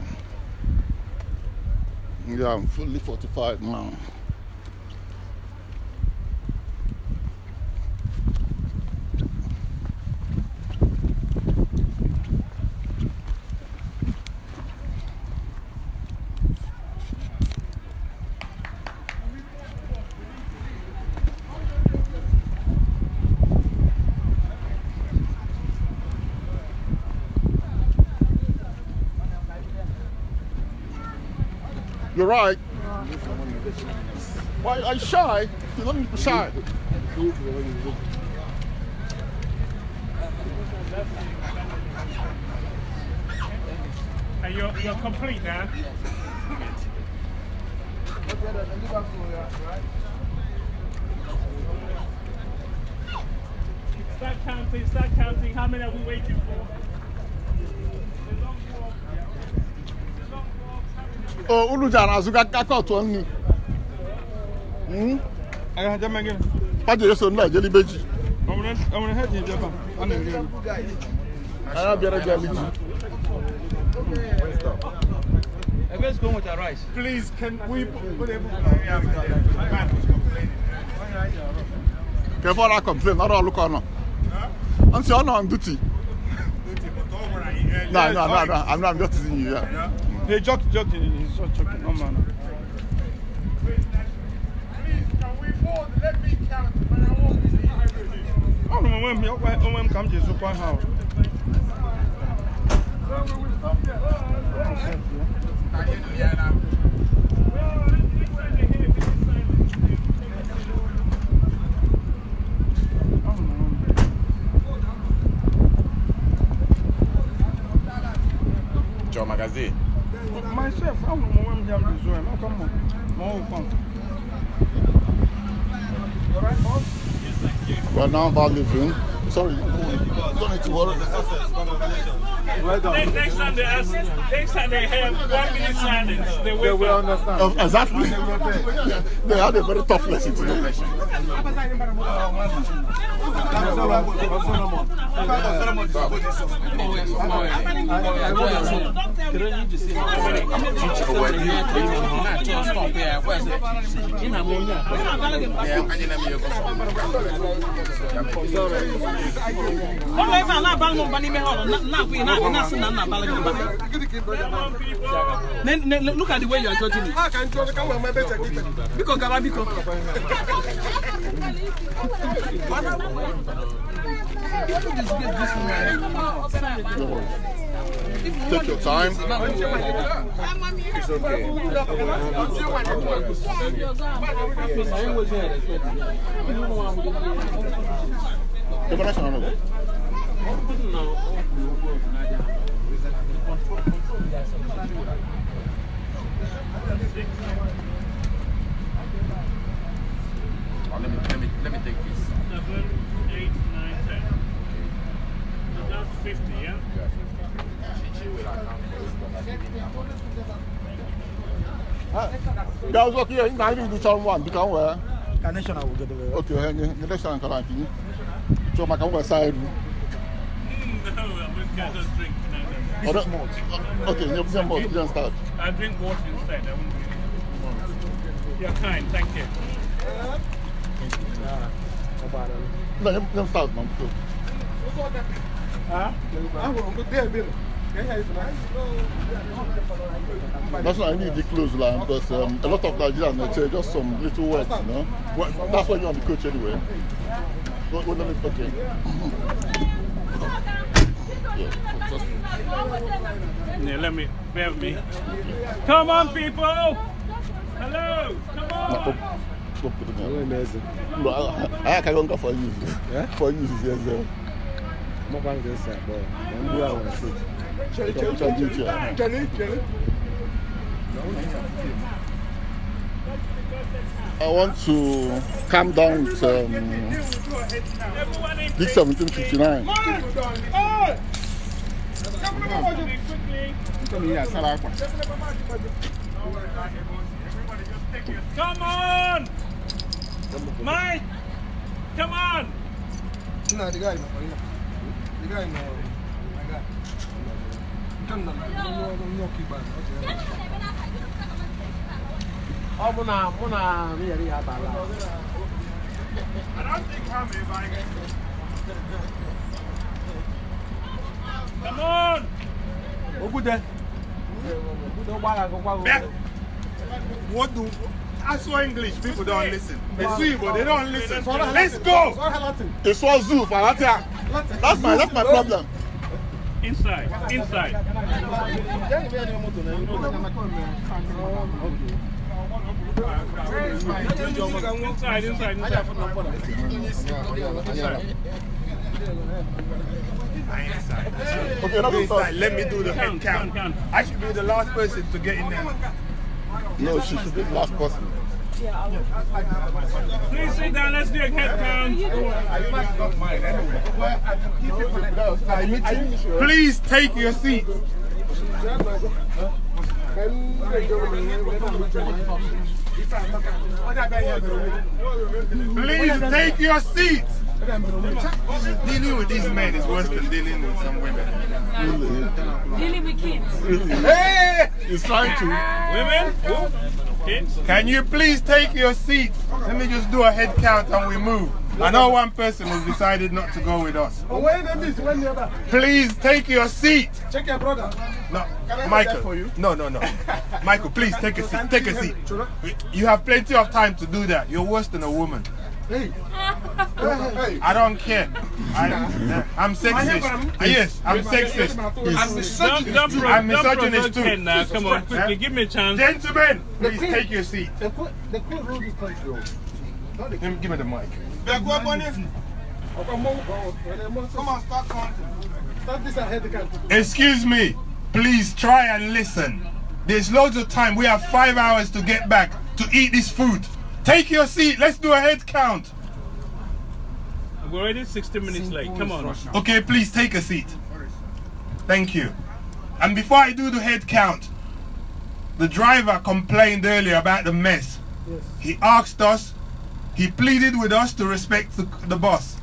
I'm fully fortified now. sorry. Hey, you're, you're complete now. Start counting, start counting. How many are we waiting for? Oh, Ulujan, as you got caught on me. Hmm? Paje yeso nla jeli beji. Omre omre heji je ba. Ana ngi. Ara biara je aliji. Everyone's going Please, can we put able Before I complain, not all look on. I'm saying I'm on duty. No, no, no, no. I'm not. I'm just teasing you. Yeah. Hey, joke, He's just joking. No onwe m onwe m ka m ji zụkwa ha Thank you. now about leaving. Sorry, done it Well done. Next, time they ask, next time they have one minute silence, they, will understand. exactly. they had a very tough lesson Look at the way you are judging me. Ah, Bíkọ̀ (laughs) Take your time. It's okay. Come on, that's daw so kiyo nga ni du chal wan bi kan wa ka national wo gede we okay he ni national kan eu so ma kan wa side no I just drink now. This is malt. Okay, you have some malt. You can start. I drink water instead. I won't drink malt. You're kind. Thank you. Thank you. Nah, no, you can start, man. Huh? Ah, well, good day, Bill. That's why I need the clothes line because um, a lot of Nigerians uh, just some little words, you know. Well, that's why you're on the coach anyway. Go, go, let me okay. it. yeah, let me bear me. Come on, people! Hello! Come on! I, can go for you. For you, yes, sir. I'm not going to say, but I'm going to say. I want to calm down with um, 1759. Come on! Mike! Come on! No, the guy, the guy, ọ bụ na mụ na yere ya abala wodu Aswa English people don't listen. They see, but they don't listen. Let's go. It's all zoo for Latin. That's my that's my problem. Inside. Inside. Inside, inside, inside. Okay, Let me do the head count. I should be the last person to get in there. No, she should be the last person. Please sit down. Let's do a head count. it Please take your seat. Please take your seat. Dealing with these men is worse than dealing with some women. Dealing with kids. hey! He's trying to. Women? Who? Can you please take your seat? Let me just do a head count and we move. I know one person has decided not to go with us. Please take your seat. Check your brother. No, Michael. No, no, no. Michael, please take a seat. Take a seat. You have plenty of time to do that. You're worse than a woman. Hey. I don't care. I, I'm sexist. Ah, yes, I'm sexist. I'm misogynist. I'm misogynist too. Now, come on, quickly, give me a chance. Gentlemen, please take your seat. The court, the court ruled oh. give me the mic. Come on, start counting. Excuse me. Please try and listen. There's loads of time. We have five hours to get back to eat this food. Take your seat. Let's do a head count. We're already 60 minutes late. Come on. Okay, please take a seat. Thank you. And before I do the head count, the driver complained earlier about the mess. Yes. He asked us, he pleaded with us to respect the, the bus.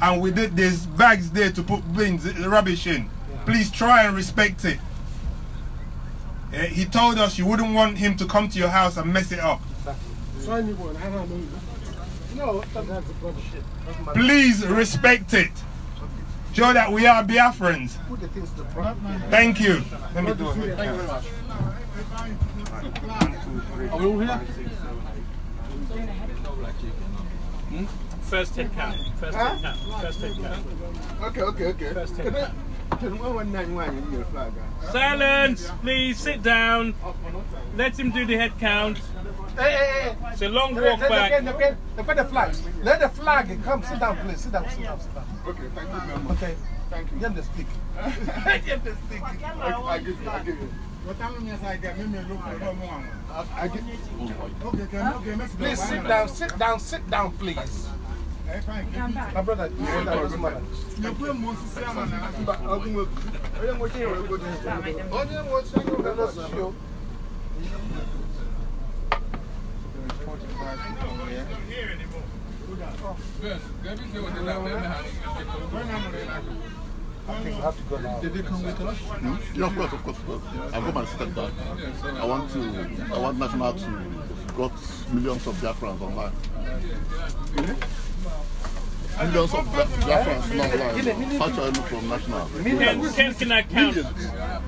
And we did, there's bags there to put bins, rubbish in. Please try and respect it. Eh, he told us you wouldn't want him to come to your house and mess it up. Anyone, I don't know. No, that's a bullshit. Please respect it. Show that we are Biafrans. Thank you. Let me do it. Thank you very much. Are we all here? Hmm? First head count. First huh? head count. First head count. Okay, okay, okay. First head count. Silence! Please sit down. Let him do the head count. Hey, hey, hey. It's a long walk let, back. Let, let, let, let the flag. Let the flag come. Sit down, please. Sit down, sit down, sit down. Okay, thank you very much. Okay. Thank you. Give the stick. Give (laughs) the stick. I give you, I give you. Please sit down, sit down, sit down, please. My brother, you sit down with mother. You put him on the same one. I'm going to go to the hospital. I think I have to go now. Did they come with us? Hmm? Yeah, of course, of course, of course. Yeah. I've got my step back. I want to, I want National to got millions of Biafrans online. Really? Millions of Biafrans online. How shall I look from National? Millions. Can, can I count? Millions.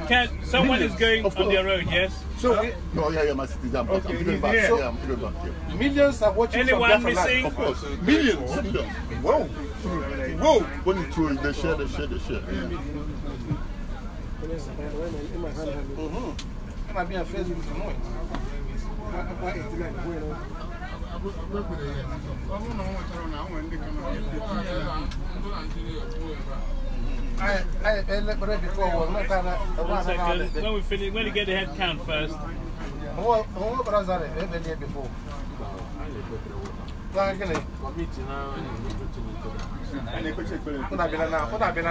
Can, someone millions. is going on their own? yes? So, we, no, eh, oh, yeah, yeah, my city's I'm, okay, I'm back. So, yeah, I'm back here. Millions are watching Anyone from missing? Of course, millions. millions. Whoa, whoa. When you throw, they share, they share, they share. Yeah. Mm-hmm. I'm being Facebook tonight. I don't I, I, I one When we finish, when we get the head count first. What what was that? I read it before. Nah, gini.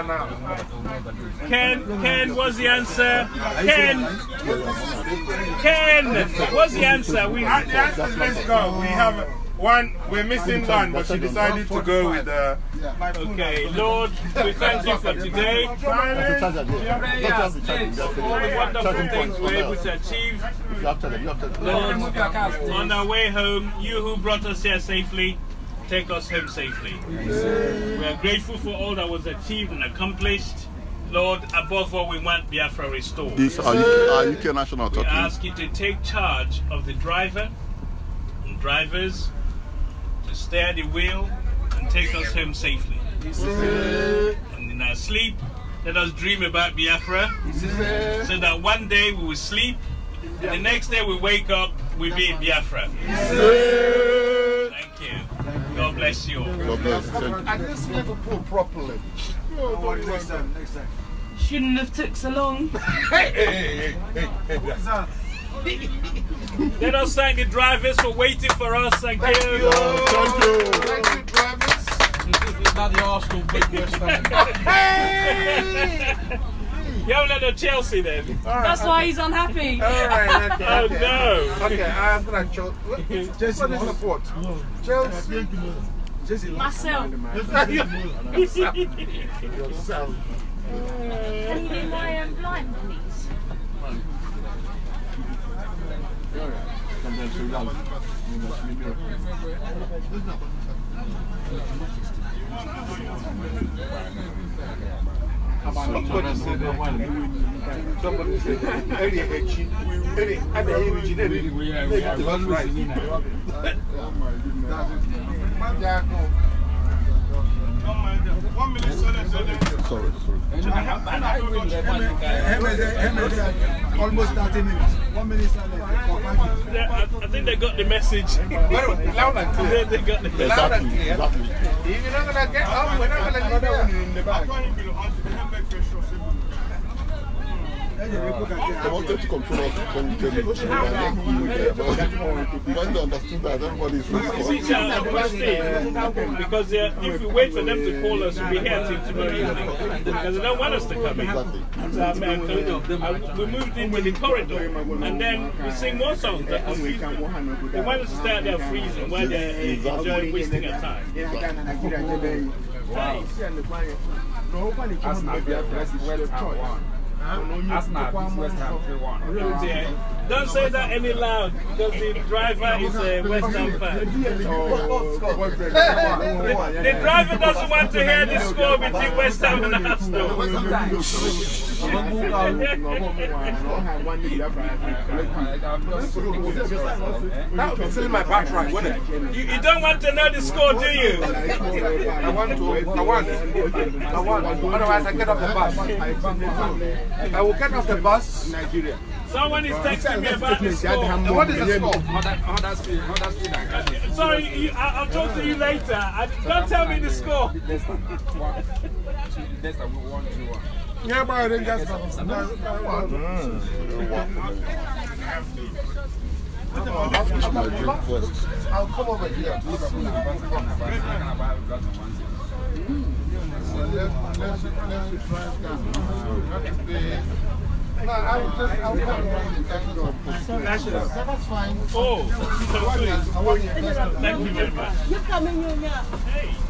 now. Ken, Ken, what's the answer? Ken, Ken, what's the answer? We have the answer. Let's go. We have. One, we're missing one, but she decided to go with the. Uh, okay, Lord, we thank you for today. Silence, prayers, yes, all the wonderful things we're able to achieve. Lord, on our way home, you who brought us here safely, take us home safely. We are grateful for all that was achieved and accomplished. Lord, above all, we want Biafra restored. This are UK, National talking. We ask you to take charge of the driver and drivers to steer the wheel and take us home safely. And in our sleep, let us dream about Biafra so that one day we will sleep and the next day we wake up, we be in Biafra. Thank you. God bless you all. God bless you. And this Liverpool properly. Oh, next time, next time. Shouldn't have took so long. hey, hey, hey, hey, hey. (laughs) Let us thank the drivers for waiting for us. Thank, thank you. you. Thank you. Thank you, drivers. Not the Arsenal big West (laughs) Hey! You haven't had a Chelsea then. Right, That's okay. why he's unhappy. All right. Okay, oh okay. no. Okay, I'm gonna Chelsea. What is the port? Chelsea. Jesse Marcel. (laughs) Yourself. Can you do my um, blind, please? Sometimes you're young. You must be mirror. Somebody said that. Somebody said that. Eddie Hechi. Eddie, I'm a Hechi. Eddie, we are. We are. We are. We are. We are. We are. We are. Sorry, sorry. Almost 30 minutes. One minute yeah, I, I think they got the message. Loud and clear. They got the message. Exactly. Exactly. If you're not going to get up, we're not going to leave you in the back. They wanted to control us when they negotiated and when they understood that everybody is responsible. Because uh, if we wait for them to call us, we'll be here till tomorrow evening. Because they don't want us to come in. Um, uh, we moved in with the corridor and then we sing more songs that confuse them. They want us to stay out there freezing while they're uh, enjoying wasting our time. Wow. Arsenal beats West Ham 3-1. Don't say that any loud because the driver is a West Ham fan. the, the driver doesn't want to hear the score between West Ham (laughs) and Arsenal. that would be filling my back right, wouldn't it? You, you don't want to know the score, do you? I want to. I want. I want. Otherwise, I get off the bus. I will get off the bus. Nigeria. Someone is texting me about the score. what is the score? Huddersfield, Huddersfield and Cardiff. Sorry, you, I, I'll talk to you later. I, don't tell me the score. Leicester, one, two, Leicester, one, two, one. Yeah, but I didn't get mm. I'll come over here. I just, I thank That's fine. Oh, you. Thank you very much. You're coming, you here. Hey.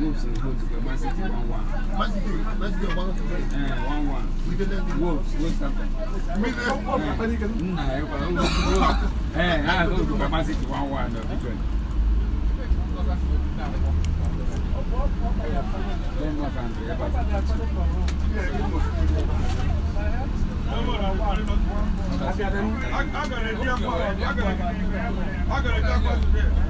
Wolves is good because Man City 1 1. Man City, Man City 1 1. 1 1. Wolves, Wolves captain. Me there? Nah, I don't know. Eh, I don't know. Man City 1 1. No, different. Then what can be about it? I got a jackpot. I got a jackpot.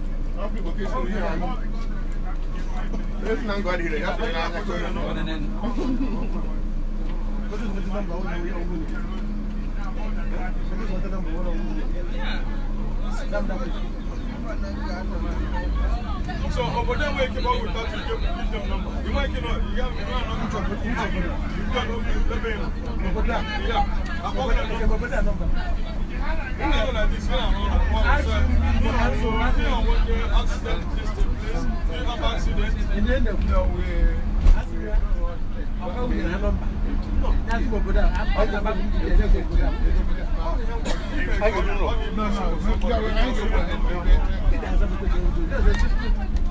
So over there we came up with that you give your number. You might you know you have you have number you got no you got no yeah. I'm over there number. I don't know. No, no, no.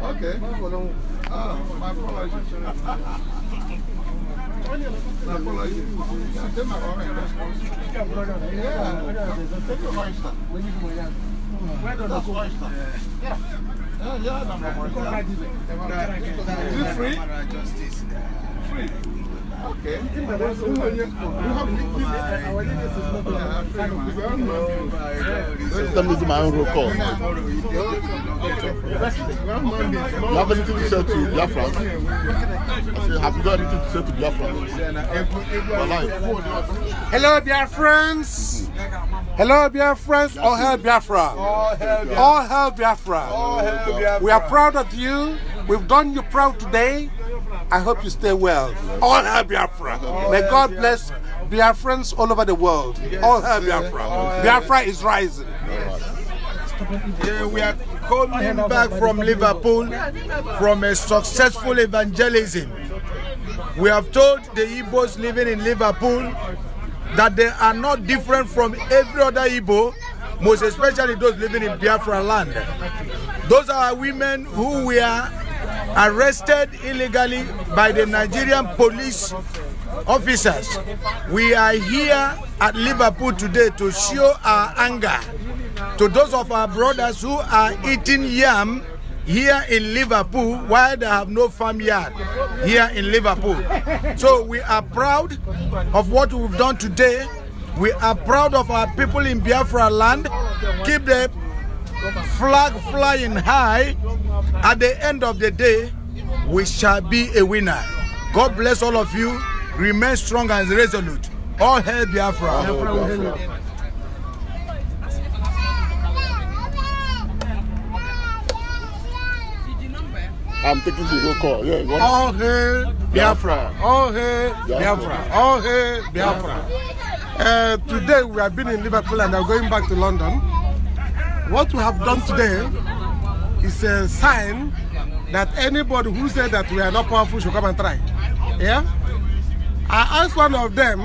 Ok, vou dar um. Ah, mas por lá, gente. Na Polónia, se tem uma hora, né? É, tem que gostar. Único molhado. Das costas. É. É, já dá uma morte. Free? Free. Okay. In my we have my own roll call. You have anything to say to Biafra? I say, have you got anything to say to Biafra? Hello, Biafrans. Hello, Biafrans. All hail Biafra. All hail Biafra. All hail Biafra. We are proud of you. We've done you proud today. I hope you stay well. All hail Biafra. May God bless Biafrans all over the world. All hail Biafra. Biafra is rising. Yeah, we are coming back from Liverpool from a successful evangelism. We have told the Igbos living in Liverpool that they are not different from every other Igbo, most especially those living in Biafra land. Those are women who we are arrested illegally by the Nigerian police officers. We are here at Liverpool today to show our anger to those of our brothers who are eating yam here in Liverpool while they have no farmyard here in Liverpool. So we are proud of what we've done today. We are proud of our people in Biafra land. Keep the flag flying high, at the end of the day, we shall be a winner. God bless all of you. Remain strong and resolute. All hail Biafra. I'm taking the roll call. Yeah, you All hail Biafra. All hail Biafra. All hail Biafra. Uh, today we have been in Liverpool and are going back to London. What we have done today is a sign that anybody who said that we are not powerful should come and try. Yeah? I asked one of them,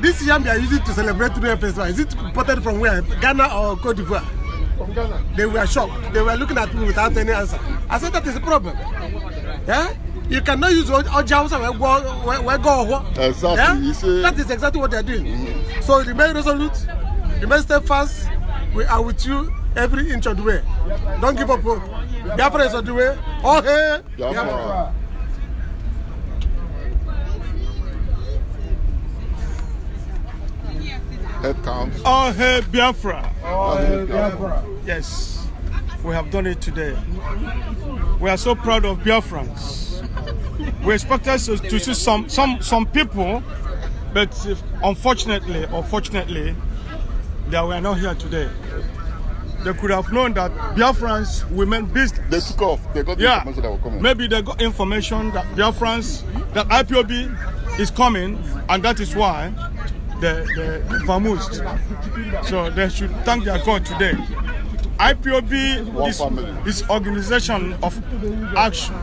this yam they are using to celebrate the festival, is it imported from where? Ghana or Cote d'Ivoire? From Ghana. They were shocked. They were looking at me without any answer. I said that is a problem. Yeah? You cannot use Ojausa where go. Exactly. Yeah? That is exactly what they are doing. Mm -hmm. So remain resolute, remain steadfast, We are with you every inch of the way. Don't give up hope. Biafra is on the way. Oh, hey! Biafra. Head counts. Oh, hey, Biafra. Oh, hey, Biafra. Yes, we have done it today. We are so proud of Biafrans. we expected to see some, some, some people, but unfortunately, unfortunately, that we are not here today. They could have known that Biafrans women beast. They took off. They got the yeah. information that were coming. Maybe they got information that Biafrans, that IPOB is coming, and that is why they, they, they vamoosed. So they should thank their God today. IPOB is, is organization of action.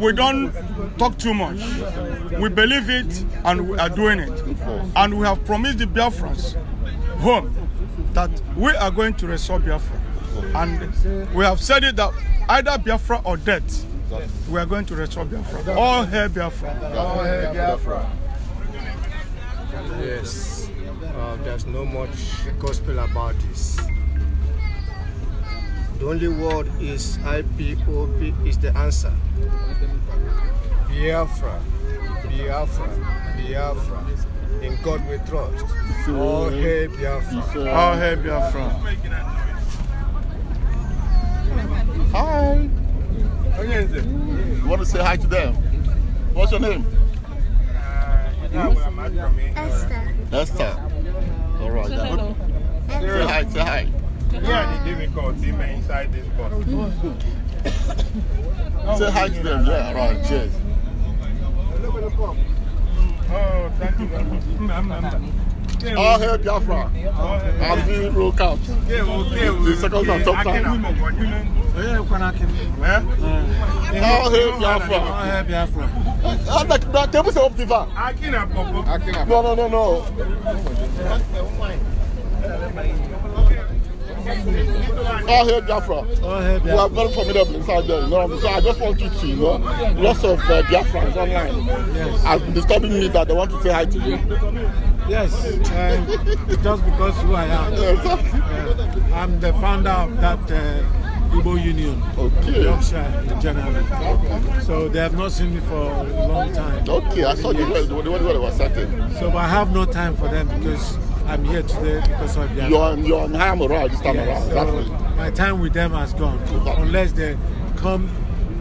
We don't talk too much. We believe it and we are doing it. And we have promised the Biafrans home that we are going to restore Biafra. And we have said it that either Biafra or death, we are going to restore Biafra. All hail Biafra. All hail Biafra. Yes, uh, there's no much gospel about this. The only word is IPOP is the answer. Biafra, Biafra, Biafra in God we trust. So, All hail Biafra. So, um, All hail Biafra. Hi. You want to say hi to them? What's your name? Hmm? Esther. Esther. All right. Say hello. Say hi, say hi. Yeah, the difficulty man inside this bus. say hi to them, yeah, all right, cheers. Oh, thank you very much. All hail Biafra. i will doing roll count. The second time, top count. All hail Biafra. All hail Biafra. I'm like, that table is up the No, no, no, no. All hail Biafra. All hail Biafra. You are very formidable inside there, you know. So I just want you to, you know, lots of uh, Biafrans online yes. has been disturbing me that they want to say hi to you. Yes, uh, just because who I am. Yes. Uh, I'm the founder of that uh, Igbo Union, okay. Yorkshire in general. Okay. So they have not seen me for a long time. Okay, I saw you when they were setting. So but I have no time for them because I'm here today because of Yama. You're on, you're on Hamura this time around. So my time with them has gone, exactly. unless they come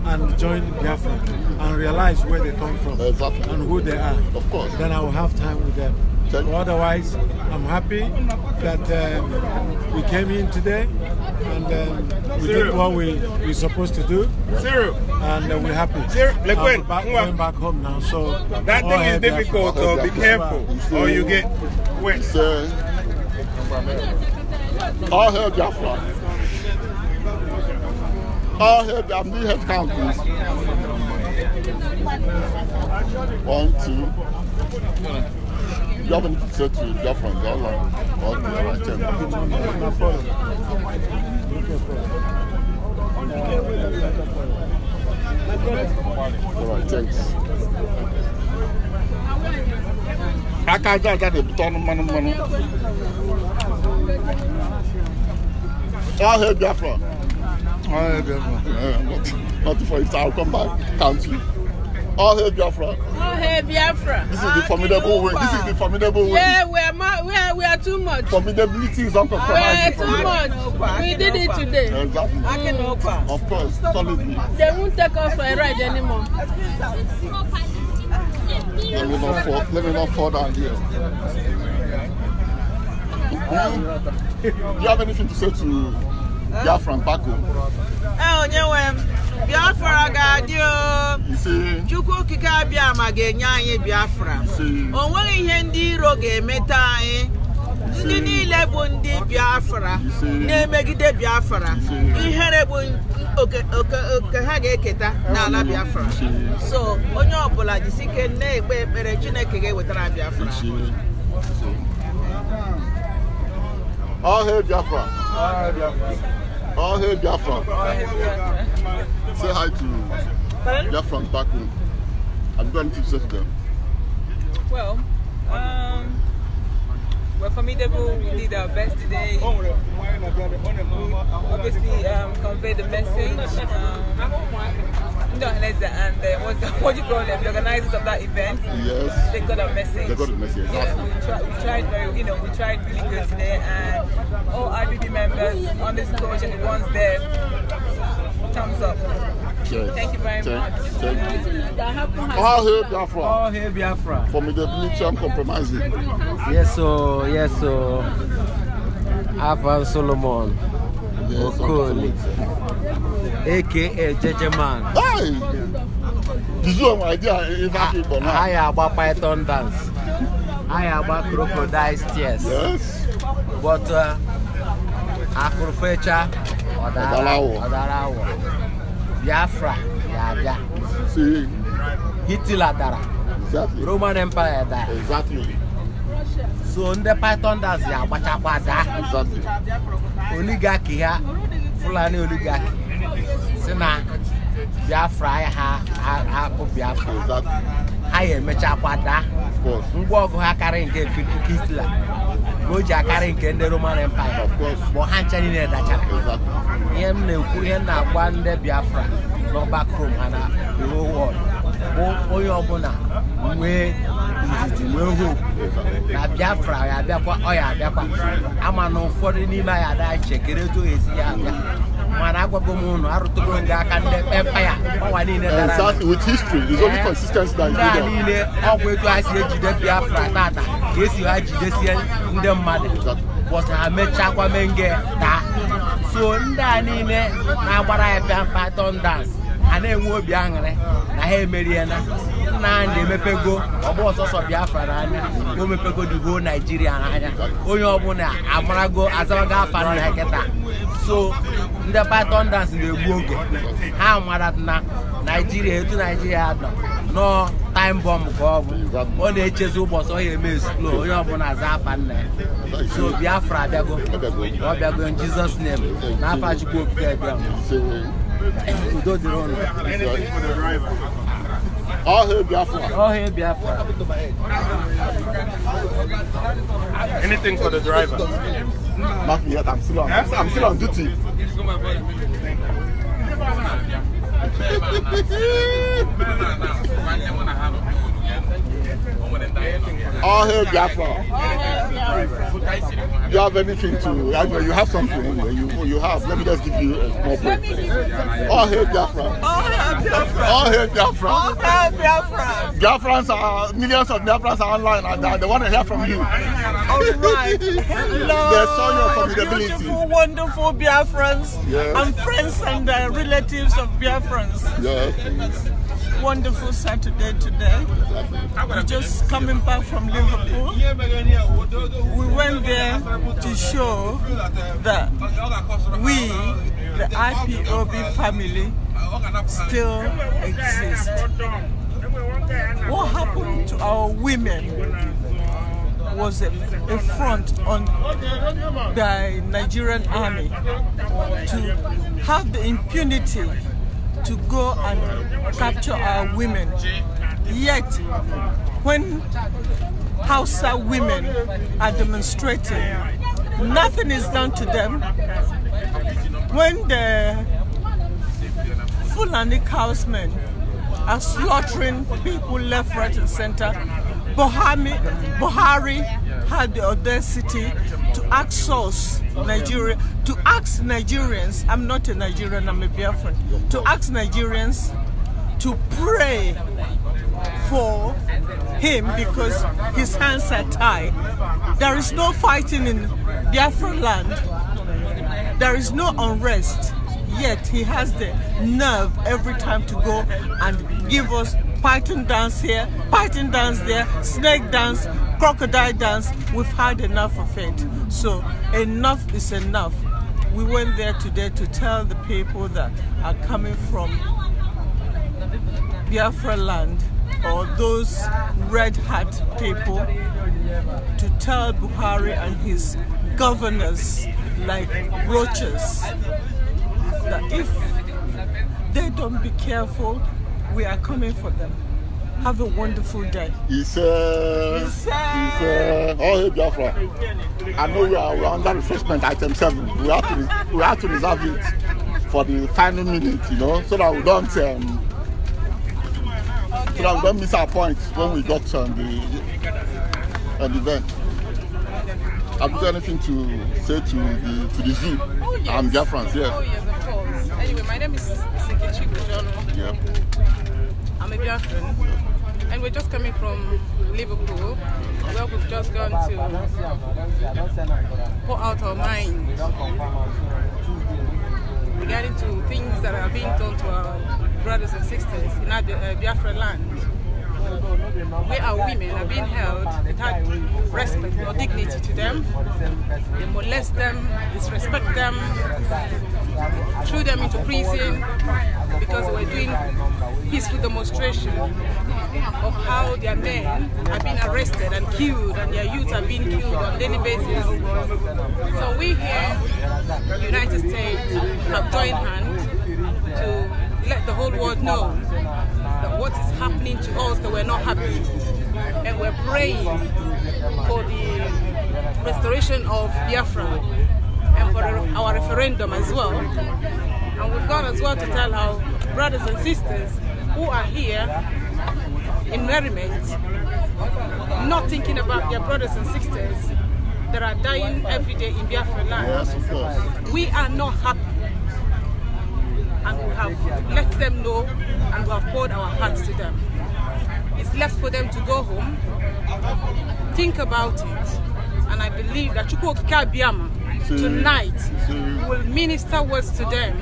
and join Biafra and realize where they come from exactly. and who they are. Of course. Then I will have time with them. Otherwise, I'm happy that um, we came in today and um, we Zero. did what we we're supposed to do. Zero. And uh, we're happy. Zero. Like when? Back, going back home now, so that thing is difficult. So be careful, or you get all hail Jaffa. All hail the Amnihad counties. One, two. You have to say to Jaffa they're all the right hand. All right, thanks. ka aka aja aja na-ebute ọnụ mmanụ mmanụ ọhịa biafra ọhịa ah, biafra eh, not for it i'll come back count you ọhịa ah, biafra ọhịa oh, biafra this is the ah, formidable way this is the formidable way yeah we are we are we are too much formidability is uncompromising we are too much we did it today exactly mm. of course solidly they won't take us for a ride anymore. Let me not fall, let me not fall down here. Do hmm? you have anything to say to Biafra and Bako? Eh, onyewe Biafra ga-adị o. Chukwu okike abịa ma ga-enye anyị Biafra. O nweghị ihe ndị iro ga-emeta anyị. ndị niile bụ ndị biafra na-emegide biafra ihere bụ oke ha ga-eketa n'ala biafra so onye ọbụla jisi ike na-ekpe ekpere chineke ga-ewetara biafra all biafra all biafra say hi to biafra back home i'm going to teach them for me, Deborah will be the best today. Obviously, um, convey the message. Um, and uh, what's the, (laughs) what do you call them, the organizers of that event. Yes. They got our message. They got the message. Yeah, awesome. we, try, we, tried very, you know, we tried really good today, and all IBB members on this coach and the ones there, thumbs up. Yes. Thank you very much. Thank you. All hail Biafra. All hail Biafra. For me, the military compromising. Yes, so yes, so Avan Solomon. Yes, Okoli. AKA JJ Man. Hey! This is my idea if I keep ah, on. I about Python dance. I am about crocodile tears. Yes. But uh, Afrofecha Ọ̀dàràwọ̀. Ọ̀dàràwọ̀ biafra ga-abịa hitler dara roman empire dara so ndị pythondas ya agbachakwa daa oligaki ha fulani oligaki si na biafra ha hapụ biafra ha ya emechakwa daa ngwa ọgụ ha karịrị nke hitler o ji akarị nke ndị Roman Empire bụ ha nche niile dachara ihe m na-ekwu ihe m na-agwa ndị Biafra n'ọgbakọ Rome ha na wọd bụ onye ọbụla nwee ndidi nwee hope na Biafra ya abịakwa ọ ya abịakwa ama ụfọdụ n'ime anyị ada chekere etu esi ya abịa mana agwago m ụnụ arụtụgo ndị aka ndị pepa ya ọnwa niile dara eh, eh, niile ọgwụ etu ha si ejide biafra tata ka esi ha jidesie ndị mmadụ bọsụ ha mechakwa menge taa so ndị a niile na-agbara ya pịa mpa tọndans ha na-enwe obi aṅụrị na ha emeriela na anyị na-emepego ọgbọ ọsọsọ biafra n'anya omepego dugo naijiria n'anya onye ọbụla amarago azabago afa na kịta so ndị python na-egbu oge ha mara na naijiria etu naijiria dọ nọọ time bomb ka ọ bụ ọ na-echezi ụbọchị ọ eme esplo onye ọbụla aza afa nna ya so biafra abịago ọ bịago jizọs nem na afa chukwu okike bịa udo dịrị ụlọ All hail Biafra. All hail Biafra. Anything for the driver. Not yet. I'm still on. I'm still on duty. (laughs) (laughs) All hail Biafra. You have anything to, I you have something anyway. You, you have, let me just give you a small point. All hail Biafra. All hail Biafra. All hail Biafra. All Biafrans are, millions of Biafrans are online and uh, they, they want to hear from you. All right. Hello. They saw your formidability. Beautiful, wonderful Biafrans yes. and friends and uh, relatives of Biafrans. Yes. wonderful Saturday today. We're just coming back from Liverpool. We went there to show that we, the IPOB family, still exist. What happened to our women was a, a front on the Nigerian army to have the impunity to go and capture our women. Yet, when Hausa women are demonstrating, nothing is done to them. When the Fulani cowsmen are slaughtering people left, right, and center, Buhari, Buhari had the audacity to outsource Nigeria, to ask Nigerians, I'm not a Nigerian, I'm a Biafran, to ask Nigerians to pray for him because his hands are tied. There is no fighting in Biafran land. There is no unrest. Yet he has the nerve every time to go and give us python dance here, python dance there, snake dance, crocodile dance. We've had enough of it. So enough is enough. We went there today to tell the people that are coming from Biafra land or those red hat people to tell Buhari and his governors like roaches that if they don't be careful, we are coming for them. Have a wonderful day. Isa. Isa. it's uh, oh, hey, Biafra. I know we are, we are under refreshment item 7. We have, to, we have to reserve it for the final minute, you know, so that we don't. Um, so that we don't miss our point when we got on um, the, on the event. Have you got anything to say to the to the zoo? Oh, yes. I'm Biafrans, yes. Oh, yes, of course. Anyway, my name is Sekichi Bujono. Yep. I'm a Biafran. And we're just coming from Liverpool, Well, we've just gone to pour out our minds regarding to things that are being done to our brothers and sisters in our uh, Biafra land where our women are being held without respect or dignity to them. They molest them, disrespect them, threw them into prison because they were doing peaceful demonstration of how their men have been arrested and killed and their youth have been killed on daily basis. So we here, the United States, have joined hands to let the whole world know that what is happening to us that we're not happy. And we're praying for the restoration of Biafra and for our referendum as well. And we've gone as well to tell our brothers and sisters who are here in merriment, not thinking about their brothers and sisters that are dying every day in Biafra land. Yes, of course. We are not happy and we have let them know and we have poured our hearts to them. It's left for them to go home, think about it, and I believe that Chukwokika Biama tonight will minister words to them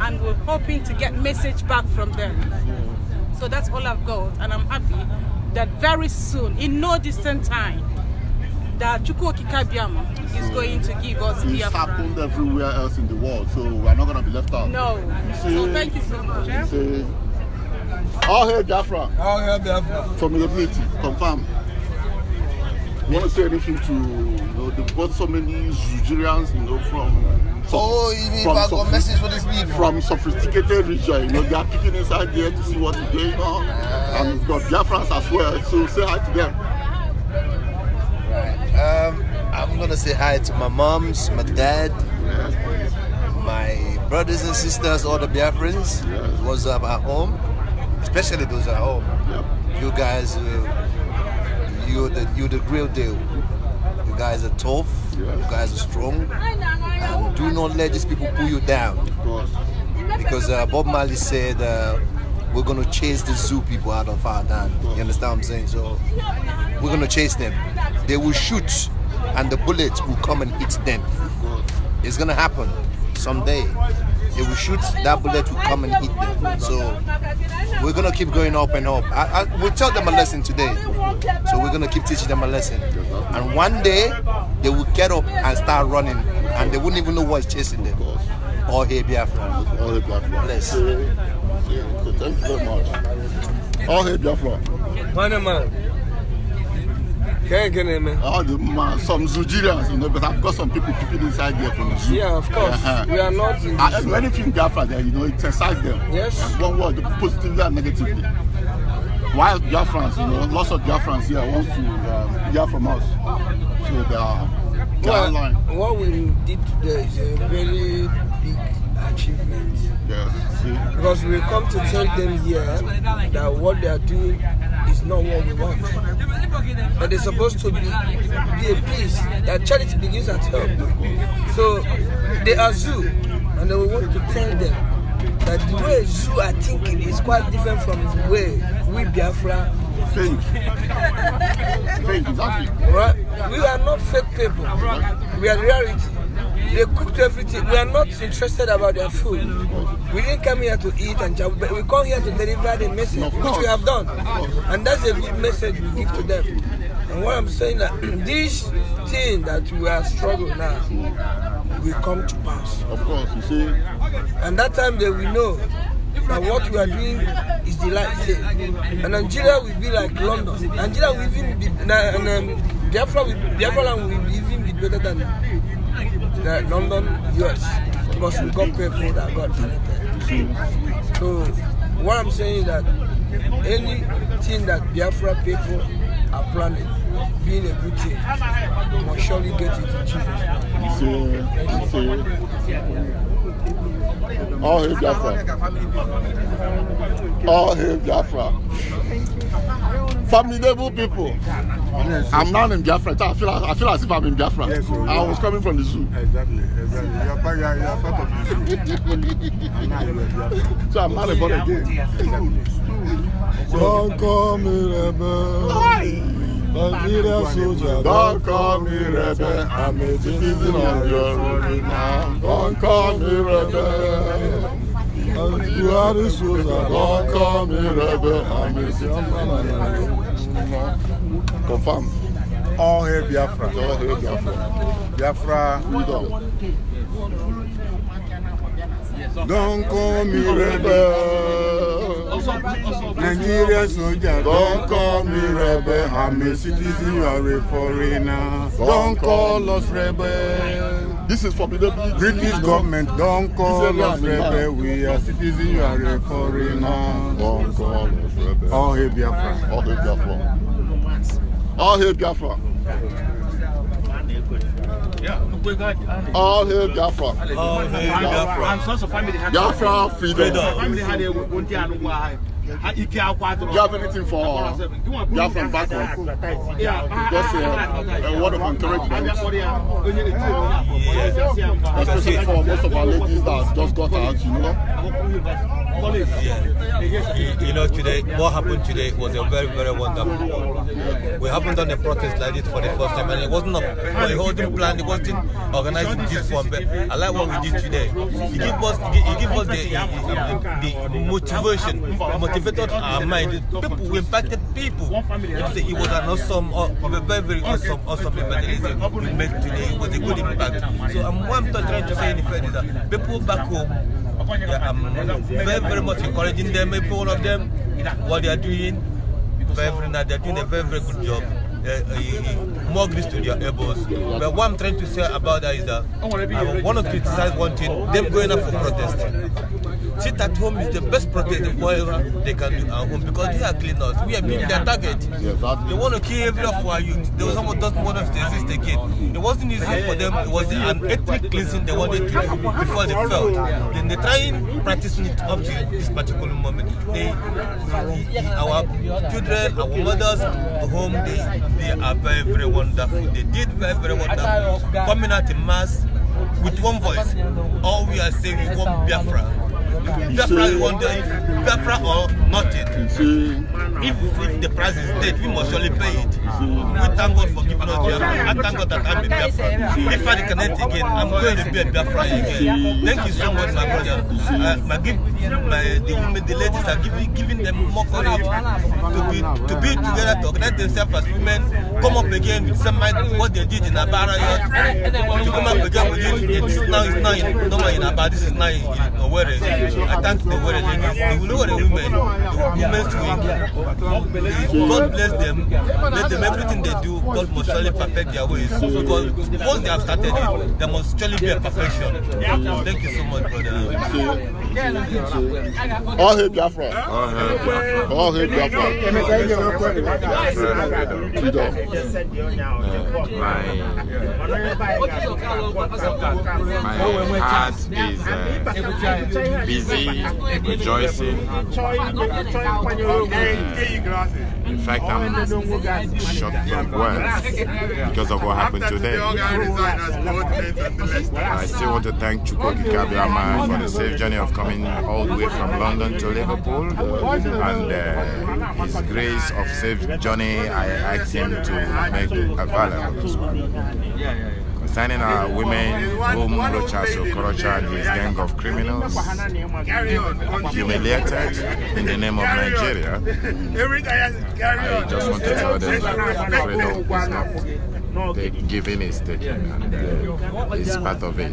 and we're hoping to get message back from them. So that's all I've got and I'm happy that very soon, in no distant time, that Chukwuoki Kabiama so is going to give us It's happened everywhere else in the world, so we're not going to be left out. No. See, so thank you so much. You all hail Biafra. All hail your ability, confirm. You want to say anything to, you know, they've got so many Nigerians, you know, from... so, oh, you mean from got message for this people? From sophisticated region, you know, they are picking inside there to see what is going on. Uh, and we've got Biafrans as well, so say hi to them. Um, I'm gonna say hi to my moms, my dad, my brothers and sisters, all the Biafrans. Yes. What's up at home? Especially those at home. Yep. You guys, uh, you the you the real deal. You guys are tough. You guys are strong. And um, do not let these people pull you down. Of course. Because uh, Bob Marley said. Uh, we're gonna chase the zoo people out of our land. You understand what I'm saying? So we're gonna chase them. They will shoot and the bullets will come and hit them. It's gonna happen someday. They will shoot, that bullet will come and hit them. So we're gonna keep going up and up. I, I, we'll tell them a lesson today. So we're gonna keep teaching them a lesson. And one day they will get up and start running and they wouldn't even know what's chasing them. All here Biafra. All here Biafra. Bless. Yeah, yeah. Thank you very much. All here Biafra. Panama. Can you name All the man, some Nigerians, you know, but I've got some people people inside there from Zoo. Yeah, of course. uh We are not in uh, zoo. Anything Biafra there, you know, it excites them. Yes. And one word, positively and negatively. Why Biafrans, you know, lots of Biafrans here want to um, hear from us. So uh, they are well, What we did today is a very big Because we come to tell them here that what they are doing is not what we want. But they're supposed to be, be a peace that charity begins at home. So they are zoo, and we want to tell them that the way zoo are thinking is quite different from the way we Biafra think. think exactly. Right? We are not fake people. We are reality. They cooked everything. We are not interested about their food. We didn't come here to eat and jab, but we come here to deliver the message, which we have done. And that's a good message we give to them. And what I'm saying that (clears throat) this thing that we are struggling now will come to pass. Of course, you see. And that time they will know that what we are doing is the right thing. And Nigeria will be like London. Nigeria will even be, and um, Biafra will, Biafra will even be better than the London, US, because we got people that got talented. So what I'm saying is that anything that Biafra people are planning, being a good thing, will surely get it in Jesus' name. All hail Biafra. All hail Biafra formidable people. I'm now in Biafra. I feel, I feel as if I'm in Biafra. Yes, so oh, I was coming from the zoo. Exactly, exactly. You're part, you're, part of the zoo. I'm not a born again. Don't call me rebel. Why? Nigeria soldier, don't call me rebel. I'm a citizen of your own Don't call me rebel. Buhari call me rebel and me Confirm. All hail Biafra. All hail Biafra. Biafra freedom. Don't call me rebel. Nigerian soldier, don't call me rebel. I'm a citizen, you are a foreigner. Don't call us rebel. This is for the British government don't call us rebel. We are citizens. You are a foreigner. Don't call us rebel. All hail Biafra. All hail Biafra. All hail Biafra. All hail Biafra. All hail Biafra. And sons of family had Biafra freedom. Freedom. Family had Uh, do you have anything for uh, Biafran back home? Just uh, a word of encouragement, uh, especially for most of our ladies that just got out, you know? Yeah. You know, today, what happened today was a very, very wonderful one. We haven't done a protest like this for the first time, and it wasn't a, a holding plan, it wasn't organizing this one, but I like what we did today. It gave us, it gave us the, the, the motivation, motivation elevated our mind. People, we impacted people. It was an awesome, uh, very, very awesome, awesome evangelism we met today. It was a good impact. So um, what I'm trying to say in effect is that people back home, yeah, I'm very, very much encouraging them, every of them, what they are doing. Very, very, they're doing a very, very good job. Uh, uh, uh, more grease to their elbows. But what I'm trying to say about that is that I want to criticize one thing, them going up for protest sit at home is the best protest whatever they can do at home because they are cleaners. We are being their target. They want to kill every of our youth. was someone doesn't want us to exist again. It wasn't easy for them. It was an ethnic cleansing they wanted to do before they fell. Then they try and practice it up to this particular moment. They, our children, our mothers, home, they they are very, very wonderful. They did very, very wonderful. Coming out in mass with one voice. All we are saying is one Biafra. Biafra we wonder if Biafra or nothing. If, if the price is dead, we must surely pay it. We thank God for giving us Biafra. I thank God that I'm a Biafra. If I connect again, I'm going to be a Biafra again. Thank you so much, my brother. Uh, my, give, my, the women, the ladies are giving, giving them more courage to be, to be together, to organize themselves as women, come up again with some mind what they did in Abara. To come up again with it. This now it's now, in, no, in Abara, this is now in Owerri. I thank the God You know what the women, the women's wing, God bless them. Let them everything they do, God must surely perfect their ways. Because once they have started it, there must surely be a perfection. Thank you so much, brother. So, all hail Biafra. All hail Biafra. Freedom. My, heart is uh, rejoicing. In fact, I'm shocked from words because of what happened today. I still want to thank Chukwuka Kabiyama for the safe journey of coming all the way from London to Liverpool and uh, his grace of safe journey. I asked him to make available signing our women whom Lochaso Korocha his gang of criminals humiliated in the name of Nigeria. I just want to tell them that freedom is not the giving is taking and uh, it's part of it. I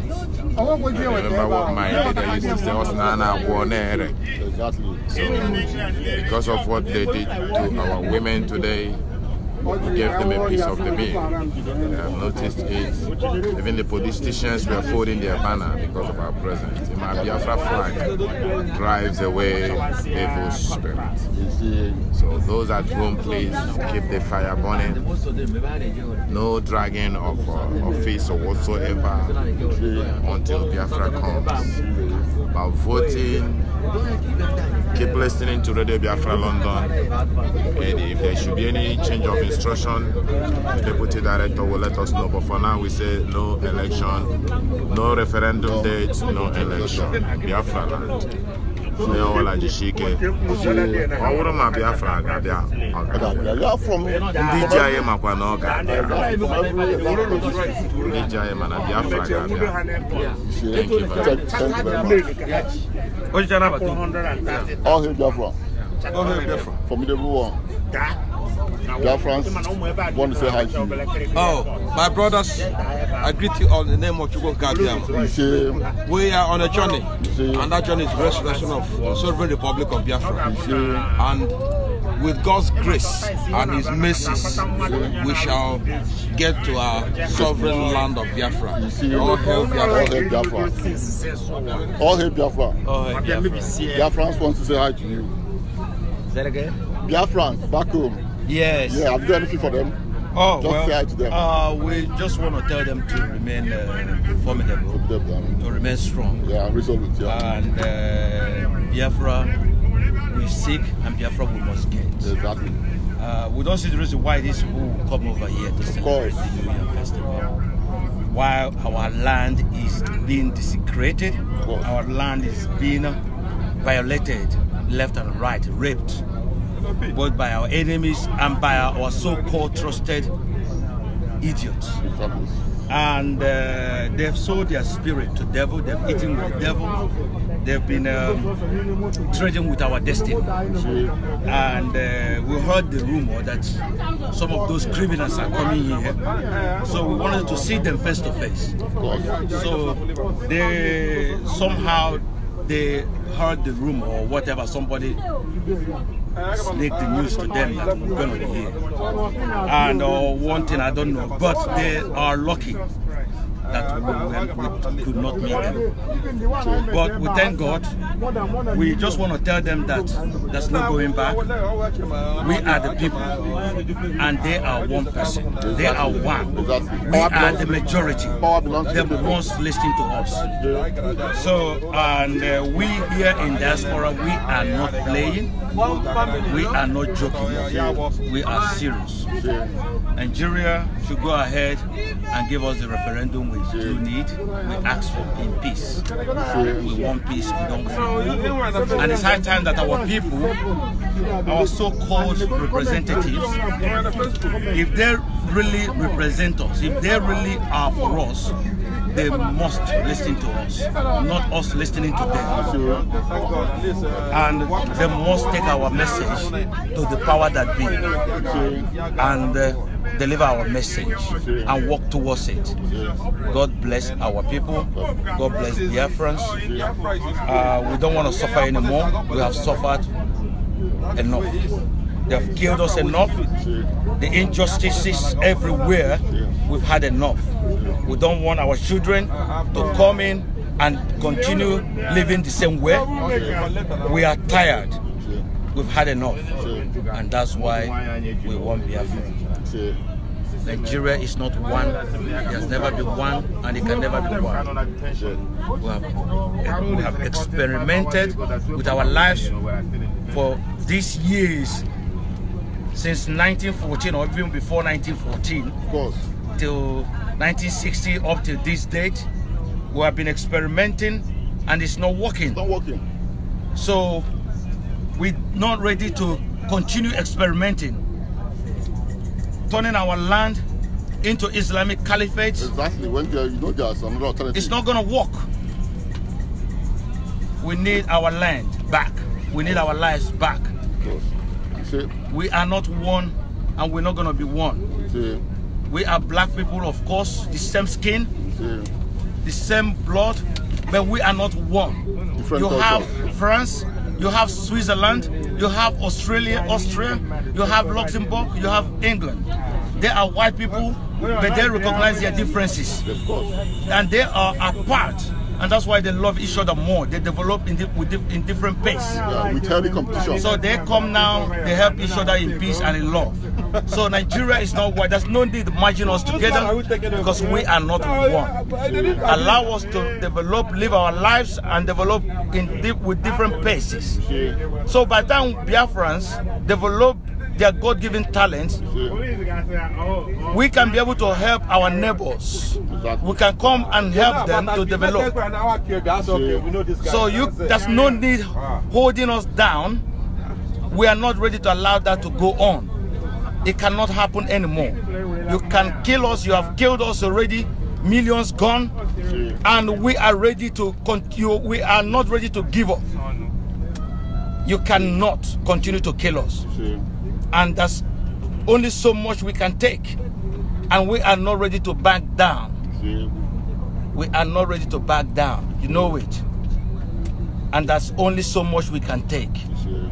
remember what my leader used to say, Osnana Guanere. So, because of what they did to our women today, we gave them a piece of the meal. And I've noticed it. Even the politicians were folding their banner because of our presence. The Biafra flag drives away evil spirit. So those at home, please keep the fire burning. No dragging of uh, office or whatsoever until Biafra comes. About voting, keep listening to Radio Biafra London. And if there should be any change of instruction, the deputy director will let us know. But for now, we say no election, no referendum date, no election. Biafra land. ne ọlaji shike ọ bụrụ ma biafra ga-abịa ndị ji anyị makwa na ọ ga-abịa ndị ji anyị mana biafra ga-abịa ọhịa biafra formidable one Dear friends, want to say hi to you. Oh, my brothers, I greet you all in the name of Chugo Gabiam. We are on a journey, and that journey is restoration of the sovereign republic of Biafra. And with God's grace and His mercies, we shall get to our sovereign land of Biafra. All hail Biafra. All hail Biafra. All hail Biafra. Biafrans want to say hi to you. Say that again? Biafrans, back home. Yes. Yeah, have you done anything for them? Oh, just well, say hi to them. Uh, we just want to tell them to remain uh, formidable, formidable I mean. to remain strong. Yeah, resolute. Yeah. And uh, Biafra, we seek and Biafra we must get. Exactly. Uh, we don't see the reason why these people will come over here to celebrate the New Year Festival while our land is being desecrated, our land is being violated left and right, raped both by our enemies and by our so-called trusted idiots. And uh, they've sold their spirit to devil, they've eaten with devil, they've been um, trading with our destiny. And uh, we heard the rumor that some of those criminals are coming here. So we wanted to see them face to face. So they somehow they heard the rumor or whatever, somebody sneak the news to them that we're going to be here. And uh, one thing I don't know, but they are lucky that we, we uh, could not meet them. But we thank God. We just want to tell them that there's no going back. We are the people, and they are one person. They are one. We are the majority. The ones listening to us. So, and uh, we here in diaspora, we are not playing. We are not joking. We are serious. Nigeria should go ahead and give us the referendum need, we ask for in peace. We want peace, we don't want peace. And it's high time that our people, our so-called representatives, if they really represent us, if they really are for us, they must listen to us, not us listening to them. And they must take our message to the power that be and uh, deliver our message and walk towards it. God bless our people. God bless Biafrans. Uh, we don't want to suffer anymore. We have suffered enough. They've killed us enough. The injustices everywhere, we've had enough. We don't want our children to come in and continue living the same way. We are tired. We've had enough. And that's why we want Biafra. Nigeria is not one. It has never been one, and it can never be one. We have, we have experimented with our lives for these years since 1914 or even before 1914. Of course. Till 1960 up to this date, we have been experimenting and it's not working. It's not working. So we're not ready to continue experimenting. Turning our land into Islamic caliphate. Exactly. When there, you know there's another alternative. It's not gonna work. We need our land back. We need our lives back. See. We are not one and we're not going to be one. See. We are black people, of course, the same skin, See. the same blood, but we are not one. Different you culture. have France, you have Switzerland, you have Australia, Austria, you have Luxembourg, you have England. They are white people, but they recognize their differences. And they are apart and that's why they love each other more. They develop in, in different pace. Yeah, with healthy competition. So they come now, they help each other in peace and in love. so Nigeria is not white. There's no need to merge us together because we are not one. Allow us to develop, live our lives and develop in with different paces. So by the time Biafrans develop their God-given talents, we can be able to help our neighbors. Exactly. We can come and help them to develop. So you, there's no need ah. holding us down. We are not ready to allow that to go on. It cannot happen anymore. You can kill us. You have killed us already. Millions gone. And we are ready to continue. We are not ready to give up. You cannot continue to kill us. And that's only so much we can take. And we are not ready to back down. We are not ready to back down. You know it. And that's only so much we can take.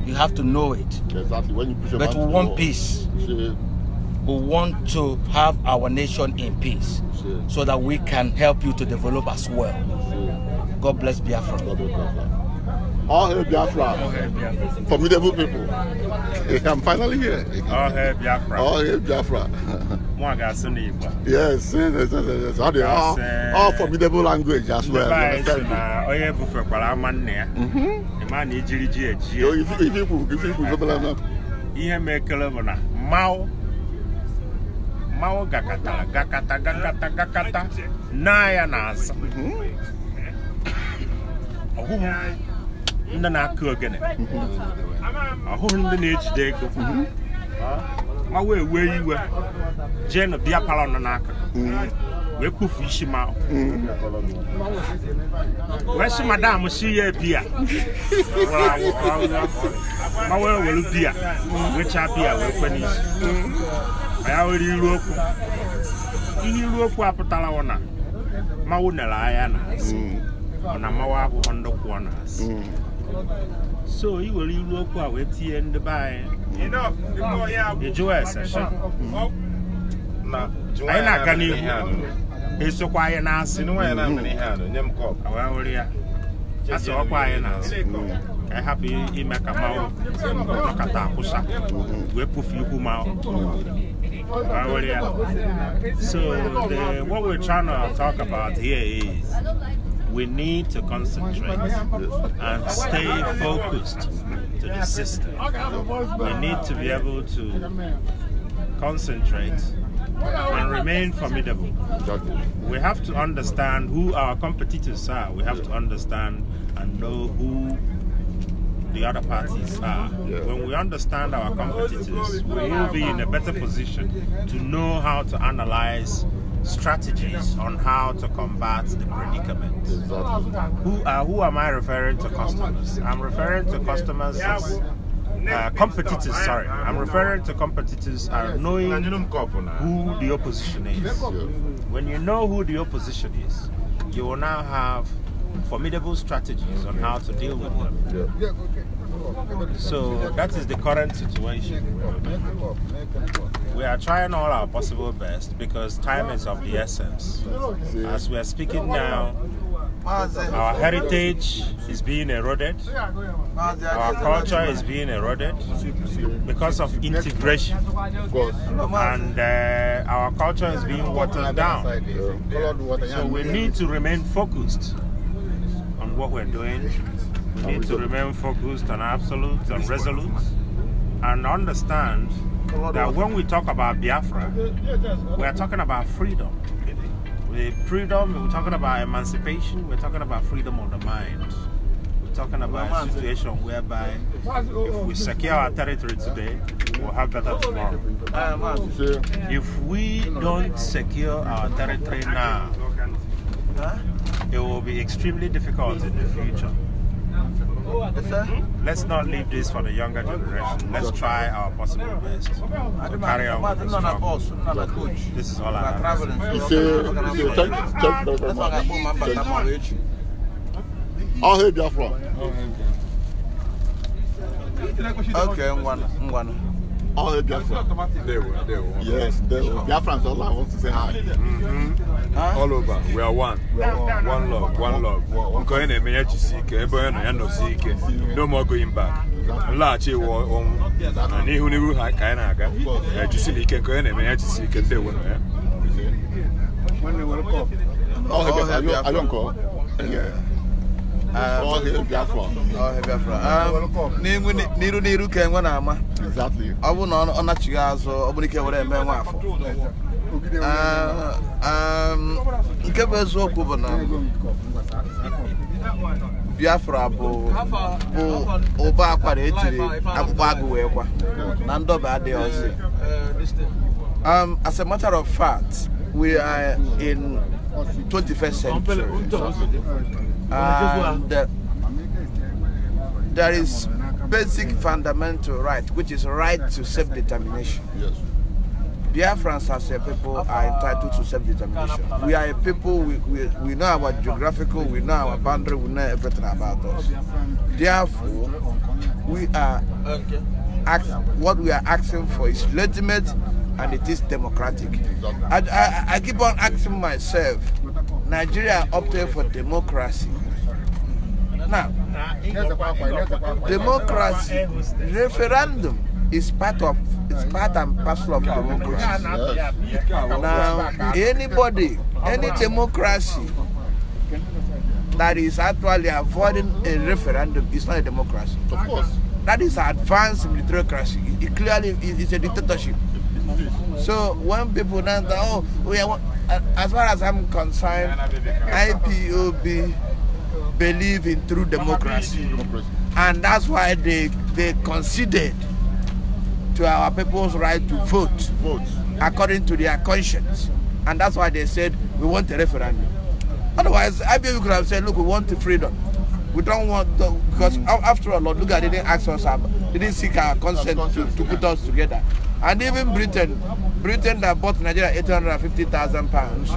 You have to know it. Exactly. When you push but we want peace. We want to have our nation in peace so that we can help you to develop as well. God bless Biafra. All hail Biafra. All hail Biafra. Formidable people. I'm finally here. All hail Biafra. All hail Biafra. yes, yes, yes, yes. All, all, all formidable language as well. Mm-hmm. Yo, if, if you if you if you ihe mekere bụ na Mao. Mao gakata. Gakata. Gakata. Gakata. na ya na azụ ọgwụgwụ ndị na-akụ ogene ahụghị ndị na-ejide ego mhm. ma wee wee iwe jee na bịa palọ nọ n'akụkụ mhm. wee kpufu isi ma mhm. wee sị madam si ya biya ma wee were biya wechaa biya wee kwe n'isi ya were iru okwu ihe iru okwu apụtara na mawụ nere anya na ọ na mmanwụ abụghị ndụ kwụọ ọ na-asị So you will leave local with you and the buy. Enough. The Joel session. Na Joel na kani hu. Eso kwa ye na asi. Nwa ye na mani ha no nyem kop. Awa wori ya. Asa okwa ye na asi. Ka happy ime ka mawo. Nakata akusa. We pufi ku mawo. So the what we're trying to talk about here is we need to concentrate and stay focused to the system. We need to be able to concentrate and remain formidable. We have to understand who our competitors are. We have to understand and know who the other parties are. When we understand our competitors, we will be in a better position to know how to analyze strategies on how to combat the predicament. Who, uh, who am I referring to customers? I'm referring to customers as uh, competitors, sorry. I'm referring to competitors are knowing who the opposition is. When you know who the opposition is, you will now have formidable strategies on how to deal with them. So that is the current situation. We are trying all our possible best because time is of the essence. As we are speaking now, our heritage is being eroded, our culture is being eroded because of integration, and uh, our culture is being watered down. So we need to remain focused on what we're doing need to remain focused and absolute and resolute and understand that when we talk about Biafra, we are talking about freedom. With freedom, we're talking about emancipation, we're talking about freedom of the mind. We're talking about a situation whereby if we secure our territory today, we'll have better tomorrow. If we don't secure our territory now, it will be extremely difficult in the future. Yes, Let's not leave this for the younger generation. Let's try our possible best to carry with this job. This is all I have. Thank you very much. Thank you. Okay, all the Biafran. They were, they were. Yes, they were. Biafrans, all I want to say hi. Mm-hmm. Huh? All over, we are one. We are one. One love, one love. Nkọ ị na-eme ya chisi ike, ebe onye nọ ya No more going back. Nlaghachi wụ ọnwụ. Na n'ihu n'ihu ha ka anyị na-aga. Ejisila eh, ike, nkọ ị na-eme ya chisi ike, ndị ewe eh. nọ ya. Nwanne were kọp. Ọhịa Biafra. Yeah. Um, um, n'iru n'iru ka enwe na-ama ọ bụ na ọ nachighị azụ ọ bụrụ ike were eme nwa afọ um, nke bụ eziokwu bụ na biafra bụ ụba akwara ejiri akpụkpọ agụ wee kwa na ndọba adịghị ọzọ as a matter of fact we are in 21st century And um, uh, there is basic fundamental right, which is right to self-determination. Yes. Biafrans as a people are entitled to self-determination. We are a people, we, we, we know our geographical, we know our boundary, we know everything about us. Therefore, we are, act, what we are asking for is legitimate and it is democratic. I, I, I keep on asking myself, Nigeria opted for democracy. Now, democracy, referendum is part of it's part and parcel of democracy. Yes. Now, anybody, any democracy that is actually avoiding a referendum is not a democracy. Of course. That is advanced democracy. It clearly is a dictatorship. So when people now that oh we are, uh, as far as I'm concerned, IPOB believe in true democracy, and that's why they they conceded to our people's right to vote, vote according to their conscience, and that's why they said we want a referendum. Otherwise, IPOB could have said, look, we want freedom. We don't want the, because mm. after all, Lord, look at they didn't ask us, uh, they didn't seek our consent to, to put us together. And even Britain, Britain that bought Nigeria 850,000 pounds.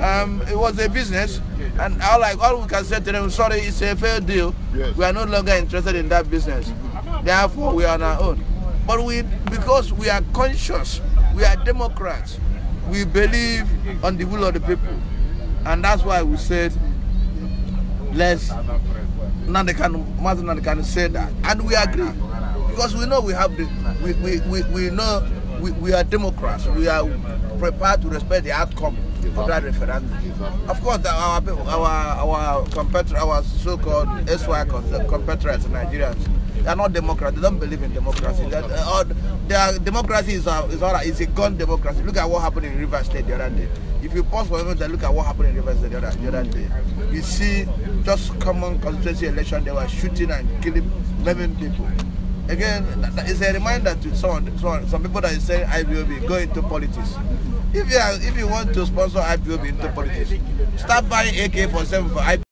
Um, it was a business, and all, like, all we can say to them, sorry, it's a fair deal. Yes. We are no longer interested in that business. Therefore, we are on our own. But we, because we are conscious, we are Democrats, we believe on the will of the people. And that's why we said, let's, Nandekanu, Master can say that. And we agree. because we know we have the we we, we, we know we, we are democrats we are prepared to respect the outcome of that referendum of course our our our competitor our so-called SY competitors Nigerians they are not democrats they don't believe in democracy that uh, their democracy is a, uh, is, a, is a gun democracy look at what happened in River State the other day if you pause for a moment and look at what happened in River State the other, the other day you see just common constituency election they were shooting and killing 11 people again, it's a reminder to some, some, some people that is saying IBOB, go into politics. If you, are, if you want to sponsor IBOB into politics, start buying ak for seven for IBOB.